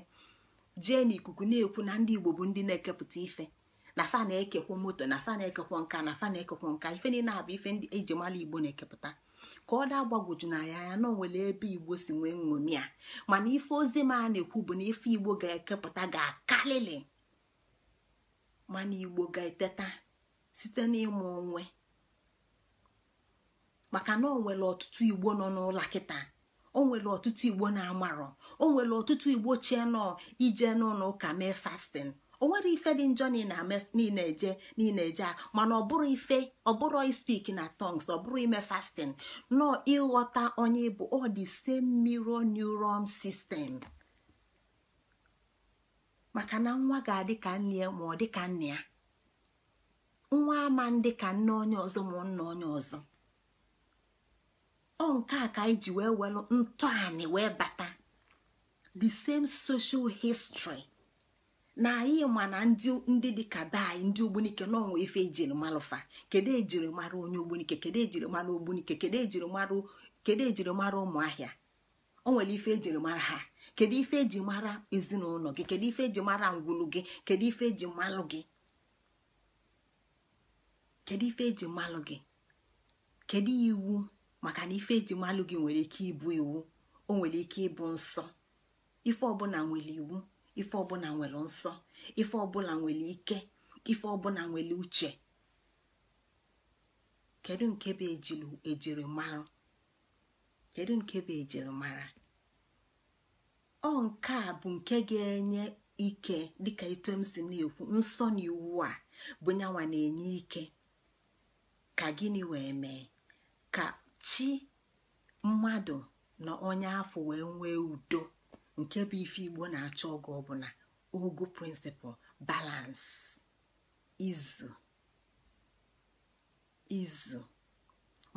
jee n'ikuku na-ekwu na ndị igbo bụ ndị na-ekepụta ife na fa na-ekekwa moto na fa na-ekekwa nka na fa na-ekekwa nka ife niile abụ ife ndị eji mara igbo na-ekepụta ka ọ daa gbagwoju na ya anya na onwere ebe igbo si nwee nṅomi a mana ife ozi m na-ekwu bụ na ife igbo ga-ekepụta ga akalili mana igbo ga-eteta site n'ịmụ onwe maka na o nwere ọtụtụ igbo nọ n'ụlọ kịta o nwere ọtụtụ igbo na-amarọ o nwere ọtụtụ igbo chie nọ ije n'ụlọ ụka mee fastin o nwere ife dị njọ niile eje niile eje a mana ọ bụrụ ife ọ bụrụ ispik na tongs ọ bụrụ ime fastin nọ ịghọta onye bụ ọ dị same mirror neuron sistem. maka na nwa ga-adị ka nne ya ma ọ dị ka nne ya nwa ama ndị ka nne onye ọzọ ma nna onye ọzọ ọ nke a ka anyị ji wee welụ ntọanị wee bata the same social history na anyị ma na ndị dị be anyị ndị ogbunike n'ọnwa ife ejiri malụfa kedu ejiri mara onye ogbunike kedu ejiri mara ogbunike kedu ejiri mara kedu ụmụahịa o nwere ife ejiri mara ha kedu ife eji mara ezinụlọ gị kedu ife eji mara ngwulu gị kedu ife eji malụ gị kedu ife eji malụ gị kedu iwu maka na ife ejimalụ gị nwere ike ịbụ iwu o nwere ike ịbụ nsọ ife ọbụla nwere iwu ife ọbụla nwere nsọ ife ọbụla nwere ike ife ọbụla nwere uche kedu nke bụ ejiri mara kedu nke bụ ejiri mara ọ nke a bụ nke ga-enye ike dịka etu si na-ekwu nsọ na iwu a bụ nyanwa na-enye ike ka gịnị wee mee ka chi mmadụ na onye afọ wee nwee udo nke bụ ife igbo na-achọ ọgụ ọbụla ogo prịnsịpal balance izu izu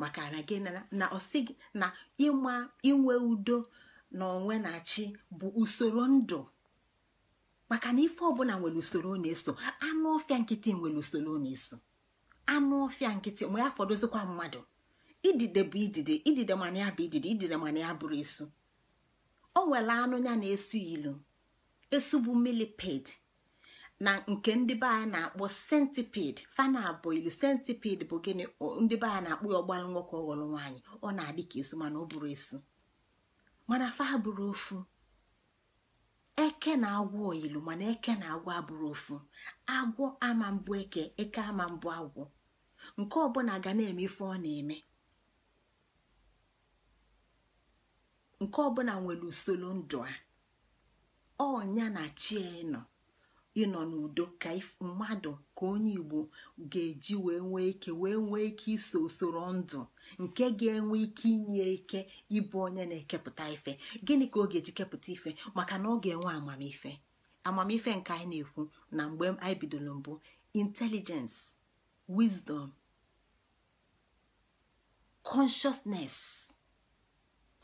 maka na gị na ọsị na ịma inwe udo na onwe na chi bụ usoro ndụ maka na ife ọbụla nwere usoro na-eso anụ ọfịa nkịtị nwere usoro na-eso anụ ọfịa nkịtị mgbe ya fọdụzikwa mmadụ idide bụ idide idide mana ya bụ idide idide mana ya bụrụ esu o nwere anụ ya na-esu ilu esu bụ milipid na nke ndị be anyị na-akpọ sentiped fana abụ ilu centipede bụ gịnị ndị be anyị na-akpọ ya ọgbara nwoke ọghọrọ nwaanyị ọ na-adị ka esu mana ọ bụrụ esu mana fa abụrụ ofu eke na agwọ ilu mana eke na agwọ abụrụ ofu agwọ ama mbụ eke eke ama mbụ agwọ nke ọbụla ga na-eme ife ọ na-eme nke ọbụla nwere usoro ndụ a ọnya na chi nọ ịnọ n'udo ka mmadụ ka onye igbo ga-eji wee nwee ike wee nwee ike iso usoro ndụ nke ga-enwe ike inye ike ịbụ onye na-ekepụta ife gịnị ka ọ ga-eji kepụta ife maka na ọ ga-enwe amamife amamife nke anyị na-ekwu na mgbe anyị bidoro mbụ intelligence wisdom consciousness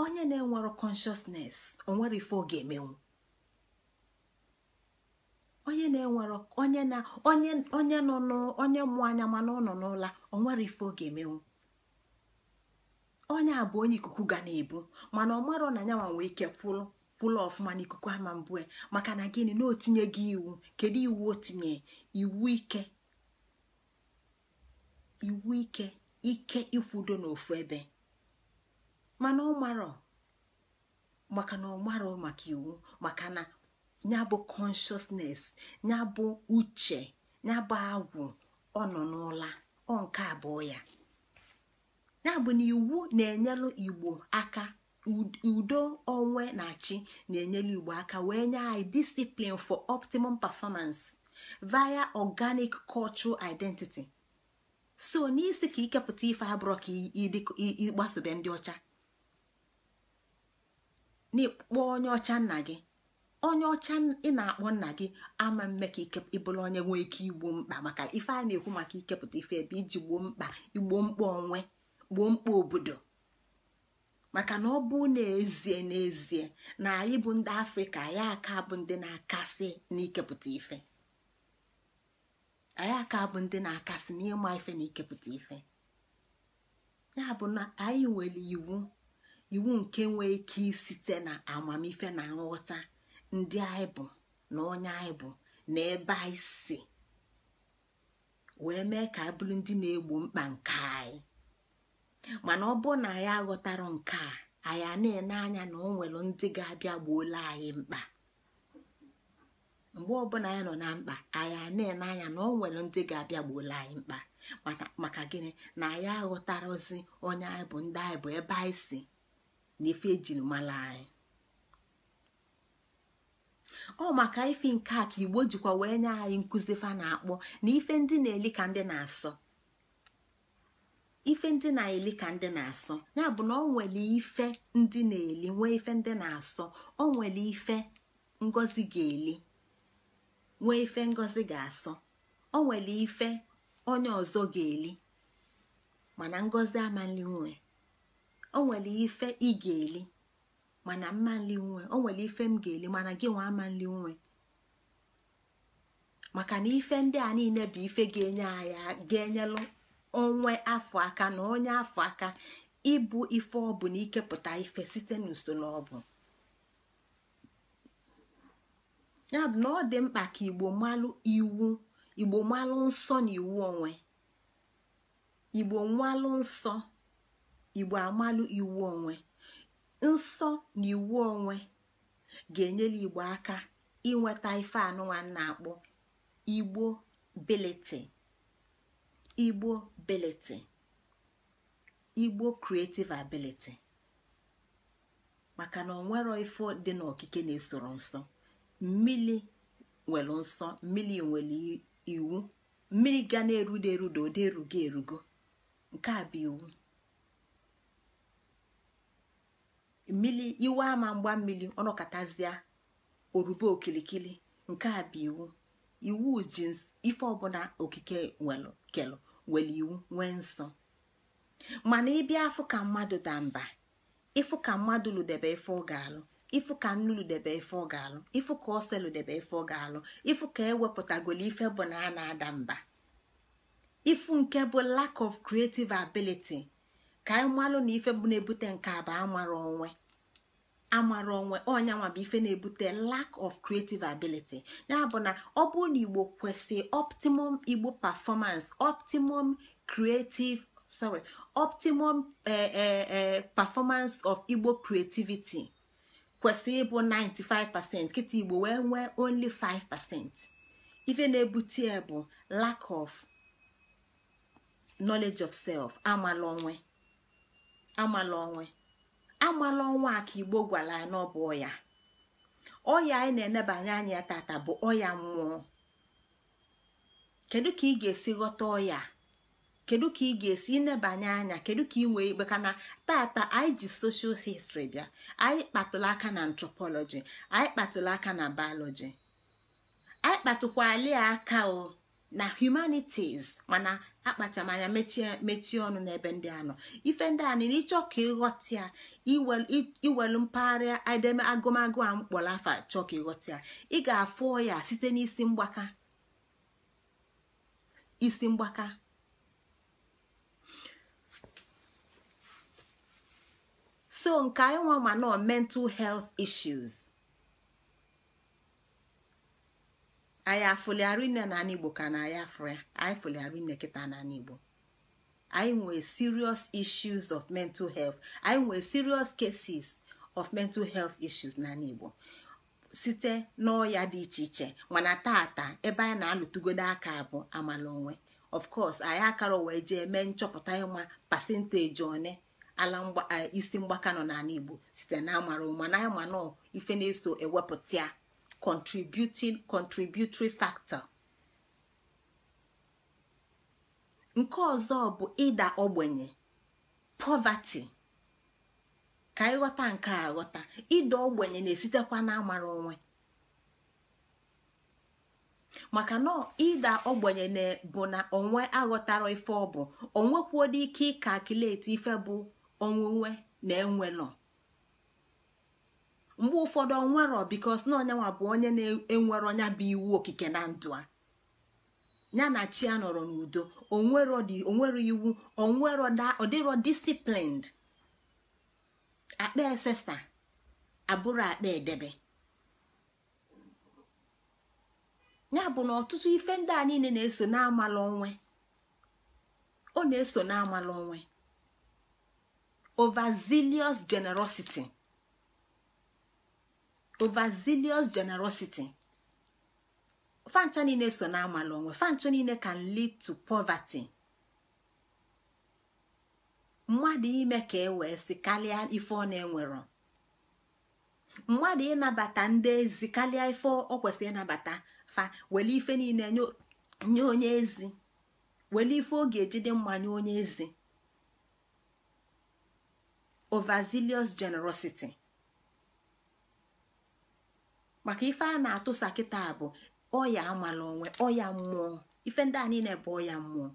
onye na-enwero consciousness onwere ife ọ ga-emenwu onye na-enwero onye na onye onye nọ n'onye mmụọ anya mana ọ nọ n'ụla onwere ife ọ ga-emenwu onye a bụ onye ikuku ga na-ebu mana ọ marọ na nyanwa nwee ike kwụrụ kwụrụ ọfụma n'ikuku ama mbụ e. maka na gịnị na otinye gị iwu kedu iwu otinye iwu ike iwu ike ike ikwudo n'ofu ebe mana ọ marọ maka na ọ marọ maka iwu maka na ya bụ consciousness ya bụ uche ya bụ agwụ ọ nọ n'ụla ọ nke abụọ ya ya bụ na iwu na-enyelụ igbo aka udo onwe na achị na-enyelụ igbo aka wee nye anyị discipline for optimum performance via organic cultural identity so n'isi ka ikepụta ife abụrọ ka ịgbasobe ndị ọcha n'ịkpọ onye ọcha nna gị onye ọcha ị na-akpọ nna gị ama mme ka ịbụrụ onye nwee ike igbo mkpa maka ife a na-ekwu maka ikepụta ife ebe iji gboo mkpa igbo mkpa onwe gboo mkpa obodo maka na ọ bụ n'ezie n'ezie na anyị bụ ndị afrịka anyị aka bụ ndị na-akasị n'ikepụta ife anyị aka bụ ndị na-akasị n'ịma ife na ikepụta ife ya bụ na anyị nwere iwu iwu nke nwee ike site na amamife na nghọta ndị anyị bụ na onye anyị bụ na ebe anyị si wee mee ka abụrụ ndị na-egbo mkpa nke anyị mana ọ bụrụ na anyị aghọtara nke a anyị a na-ene anya na o nwere ndị ga-abịa gbuola anyị mkpa mgbe ọbụla anyị nọ na mkpa anyị a na-ene anya na o nwere ndị ga-abịa gbuola anyị mkpa maka gịnị na anyị aghọtarozi onye anyị bụ ndị anyị bụ ebe anyị si na ife ejiri mara anyị ọ maka ife nke a ka igbo jikwa wee nye anyị nkụzi fa na-akpọ na ife ndị na-eli ka ndị na-asọ ife ndị na-eli ka ndị na-asọ ya bụ na ọ nwere ife ndị na-eli nwee ife ndị na-asọ ọ nwere ife ngozi ga-eli nwee ife ngozi ga-asọ ọ nwere ife onye ọzọ ga-eli mana ngozi amanli nwee. o nwere ife ị ga-eli mana mma nli nwe o ife m ga-eli mana gị nwa ama nli nwe maka na ife ndị a niile bụ ife ga-enye anyị ga-enyelụ onwe afọ aka na onye afọ aka ịbụ ife ọ bụ na ikepụta ife site n'usoro ọ bụ ya na ọ dị mkpa ka igbo malụ iwu igbo malụ nsọ na iwu onwe igbo nsọ igbo amalụ iwu onwe nsọ na iwu onwe ga-enyere igbo aka inweta ife anụnwa na-akpọ igbo biliti igbo beliti igbo creative ability maka na onwero ife dị n'okike na-esoro nsọ mmiri nwere nsọ mmiri nwere iwu mmiri ga na-erudo erudo oderugo erugo nke a bụ iwu mmili iwe ama mgba mmiri ọnọkọtazịa orube okilikili nke a bụ iwu iwu ji ife ọbụla okike kelu were iwu nwee nsọ mana ịbịa afụ ka mmadụ da mba ịfụ ka mmadụ ludebe ife ọ ga-alụ ịfụ ka nnu ludebe ife ọ ga-alụ ịfụ ka ose ludebe ife ọ ga-alụ ịfụ ka ewepụtagolo ife bụ na a na-ada mba ịfụ nke bụ lack of creative ability. ka anyị malụ na ife bụ na-ebute nke a bụ amara onwe amara onwe onye bụ ife na-ebute lack of creative ability ya bụ na ọ bụrụ na igbo kwesị optimum igbo performance optimum creative sorry optimum eh, eh, eh, performance of igbo creativity kwesị ịbụ 95% nkịta igbo wee nwee only 5% ife na-ebute bụ lack of knowledge of self amala onwe amala onwe amala ọnwa ka igbo gwara na ọ bụ ọya ọya anyị na-enebanye anya ya tata bụ ọya mmụọ kedu ka ị ga-esi ghọta ọya kedu ka ị ga-esi nebanye anya kedu ka ị nwee ikpe kana tata anyị ji soshal histri bịa anyị kpatụla aka na antropọlọji anyị kpatụla aka na bayọlọji anyị kpatụkwala aka o na humanities mana akpachamanya mechie ọnụ n'ebe ndị anọ ife ndị a nile ịchọ ka ịghọta ya iwelu mpaghara edeme agụmagụ a mkpọrọ afa chọọ ka ịghọta ị ga-afụ ya site n'isi mgbaka isi mgbaka so nke anyị nwa ma nọ mental health issues. anyị afụliara na igbo ka na anyị afụ ya anyị fụliara kịta na igbo anyị nwee serious issues of mental health anyị nwee serious cases of mental health issues na site igbo site n'ọya dị iche iche mana tata ebe anyị na alụtugodo aka bụ amala onwe of course anyị akara wee jee mee nchọpụta ịma pasenteji one ala isi mgbaka nọ n'ala igbo site na amara ụma na ịma nọ ife na-eso ewepụta contributing contributory factor nke ọzọ bụ ịda ogbenye poverty ka ịghọta nke a ghọta ịda ogbenye na-esitekwa n'amara onwe maka na ịda ogbenye bụ na onwe aghọtara ife ọ bụ onwekwuola ike ịka akileti ife bụ onwunwe na nọ. mgbe ụfọdụ onwere bikos na bụ onye na enwere ọnya bụ iwu okike na ndụ a ya na chi a nọrọ n'udo onwero iwu onwero ọdịrọ disiplined akpa esesa abụrụ akpa edebe ya bụ na ọtụtụ ife ndị a niile na-eso n'amala onwe ọ na-eso n'amala onwe overzealous generosity overzealous generosity fancha niile so na amala onwe fancha niile can lead to poverty mmadụ ime ka e wee si karịa ife ọ na-enwero mmadụ ịnabata ndị ezi karịa ife ọ kwesịrị ịnabata fa wele ife niile nye onye ezi wele ife ọ ga-eji dị mma nye onye ezi overzealous generosity maka ife a na-atụsa kịta bụ ọya amala onwe ọya mmụọ ife ndị a niile bụ ọya mmụọ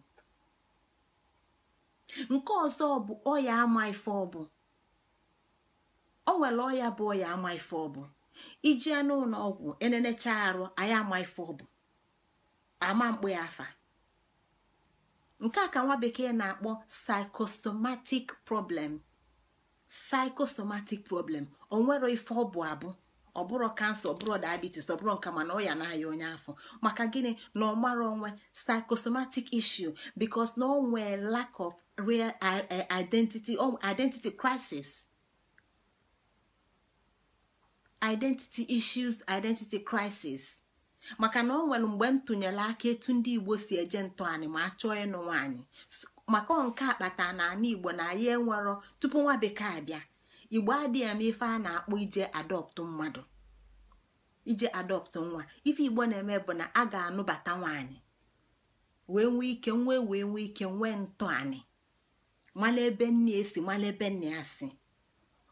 nke ọzọ bụ ọya ama ife ọbụ o nwere ọya bụ ọya ama ife ọbụ ijee n'ụlọ ọgwụ enenecha arụ anyị ama ife ọbụ ama mkpụ ya afa nke a ka nwa bekee na-akpọ psychosomatic problem psychosomatic problem onwero ife ọbụ abụ ọ bụrụ kansa ọ bụrụ diabetes ọ bụrụ nka mana ọ ya na-aya onye afọ maka gịnị na ọ mara onwe psychosomatic issue bicos na ọ nwee lack of real uh, identity identity crisis identity issues identity crisis maka na ọ nwere mgbe m tụnyere aka etu ndị igbo si eje ntọ anyị ma chọọ ịnụ nwaanyị maka nke akpata na ana igbo na ya enwero tupu nwa bekee abịa igbo adịghị ama ife a na-akpọ ije adọptụ mmadụ ije adọptụ nwa ife igbo na-eme bụ na a ga-anụbata nwaanyị wee nwee ike nwee wee nwee ike nwee ntọanị mala ebe nne esi mala ebe nne ya si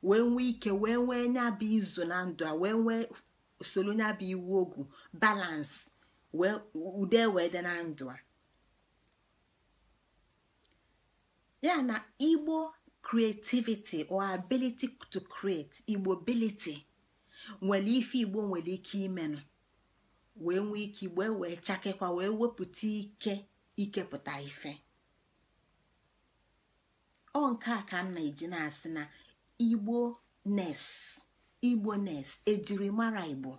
wee nwee ike wee nwee nya bụ izu na ndụ a wee nwee nya bụ iwu ogwu balansị ude wee dị na ndụ a ya na igbo creativity or ability to create igbo ability nwere ife igbo nwere ike imenụ wee nwee ike igbo wee chakekwa wee wepụta ike ikepụta ife ọ nke a ka m na-eji na-asị na igbo nes igbo nes ejirimara igbo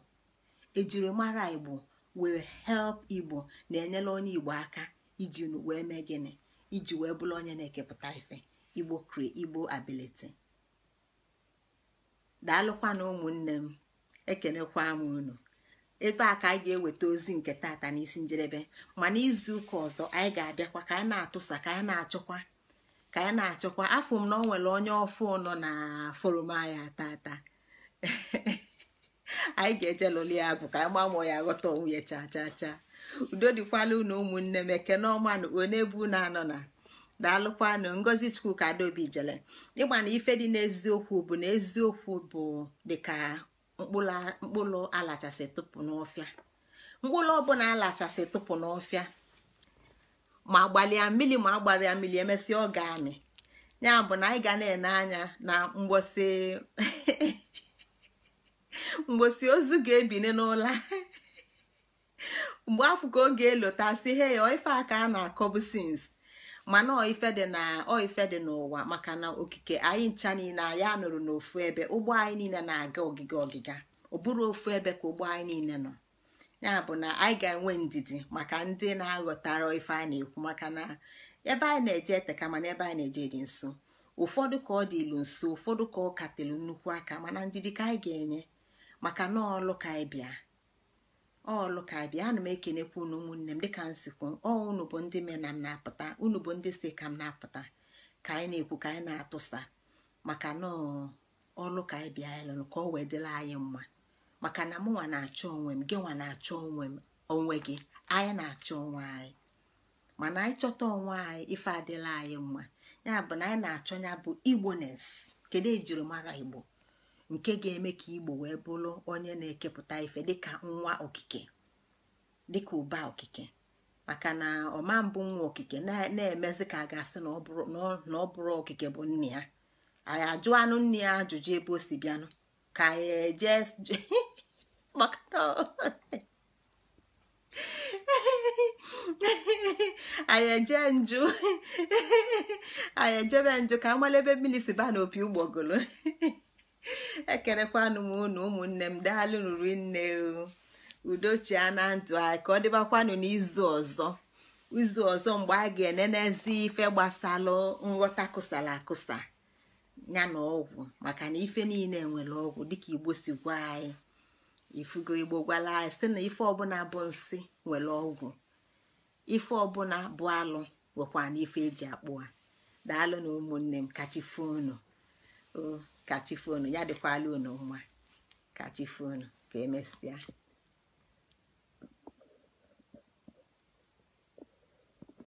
ejirimara igbo wee help igbo na-enyere onye igbo aka iji wee mee gịnị iji wee bụrụ onye na-ekepụta ife igbo igbo ability daalụkwana ụmụnne m ekenekwa m unu ebe a ka anyị ga-eweta ozi nke tata n'isi njedebe ma n'izu ụka ọzọ anyị ga-abịakwa ka anyị na-atụsa ka anyị na-achọkwa ka anyị na-achọkwa afọ m na ọ nwere onye ọfụ nọ na forum anyị tata anyị ga-eje lụlụ ya agụ ka anyị mamụọ ya ghọta onwe ya cha cha cha udo dịkwala unu ụmụnne m ekene ọma na onye bụ na anọ na daalụkwanụ ngozi chukwu ka adaobi jele ịgba na ife dị n'eziokwu bụ na eziokwu bụ dịka mkpụrụ alachasị tụpụ n'ọfịa mkpụrụ ọbụla alachasị tụpụ n'ọfịa ma gbalịa mmiri ma agbalịa mmiri emesịa ọ ga-amị ya bụ na anyị ga na-ene anya na mgbosi mgbosi ozu ga-ebini n'ụlọ mgbe afọ ka oge elota he ya ife aka a na-akọbụ sins mana ife dị na ife dị n'ụwa maka na okike anyị ncha niile anyị anụrụ n'ofu ebe ụgbọ anyị niile na-aga ogige ọgịga ọ bụrụ ofu ebe ka ụgbọ anyị niile nọ ya bụ na anyị ga-enwe ndidi maka ndị na-aghọtara ife a na-ekwu maka na ebe anyị na-eje eteka mana ebe anyị na-eje dị nso ụfọdụ ka ọ dị ilu nso ụfọdụ ka ọ katelu nnukwu aka mana ndidi ka anyị ga-enye maka na ọlụ ka anyị bịa ọlụ ka bịa ana m ekenekwa unu ụmụnne m dịka nsikwu ọ unu bụ ndị mena na m na-apụta unu bụ ndị si ka m na-apụta ka anyị na-ekwu ka anyị na-atụsa maka na ọlụ anyị bịa ka ọ wee dịla anyị mma maka na m nwa na-achọ onwe m gị nwa na-achọ onwe m onwe gị anyị na-achọ onwe anyị mana anyị chọta onwe anyị ife adịla anyị mma ya bụ na anyị na-achọ ya bụ igbones kedu ejiri mara igbo nke ga-eme ka igbo wee bụrụ onye na-ekepụta ife dịka nwa okike dịka ụba okike maka na ọma mbụ nwa okike na-emezi ka a ga-asị na ọ bụrụ okike bụ nne ya anyị ajụ anụ nne ya ajụjụ ebe o si bịanụ ka anyị eje maka anyị eje njụ anyị ejebe njụ ka amalebe mmiri si n'opi ụgbọgolo ekerekwanụ m unu ụmụnne m daalụ nri nne udochia na ndụ anyị ka ọ dịbakwanụ n'izu ọzọ izu ọzọ mgbe a ga-enenezi ife gbasalụ nghọta kụsara akụsa ya na ọgwụ maka na ife niile nwere ọgwụ dịka igbo si gwa anyị ifugo igbo gwala anyị si na ife ọbụla bụ nsị nwere ọgwụ ife ọbụla bụ alụ nwekwa na ife eji akpụ a daalụ na ụmụnne m kachi fonu ka chi ya dịkwala unu mma ka chi foonu ka emesịa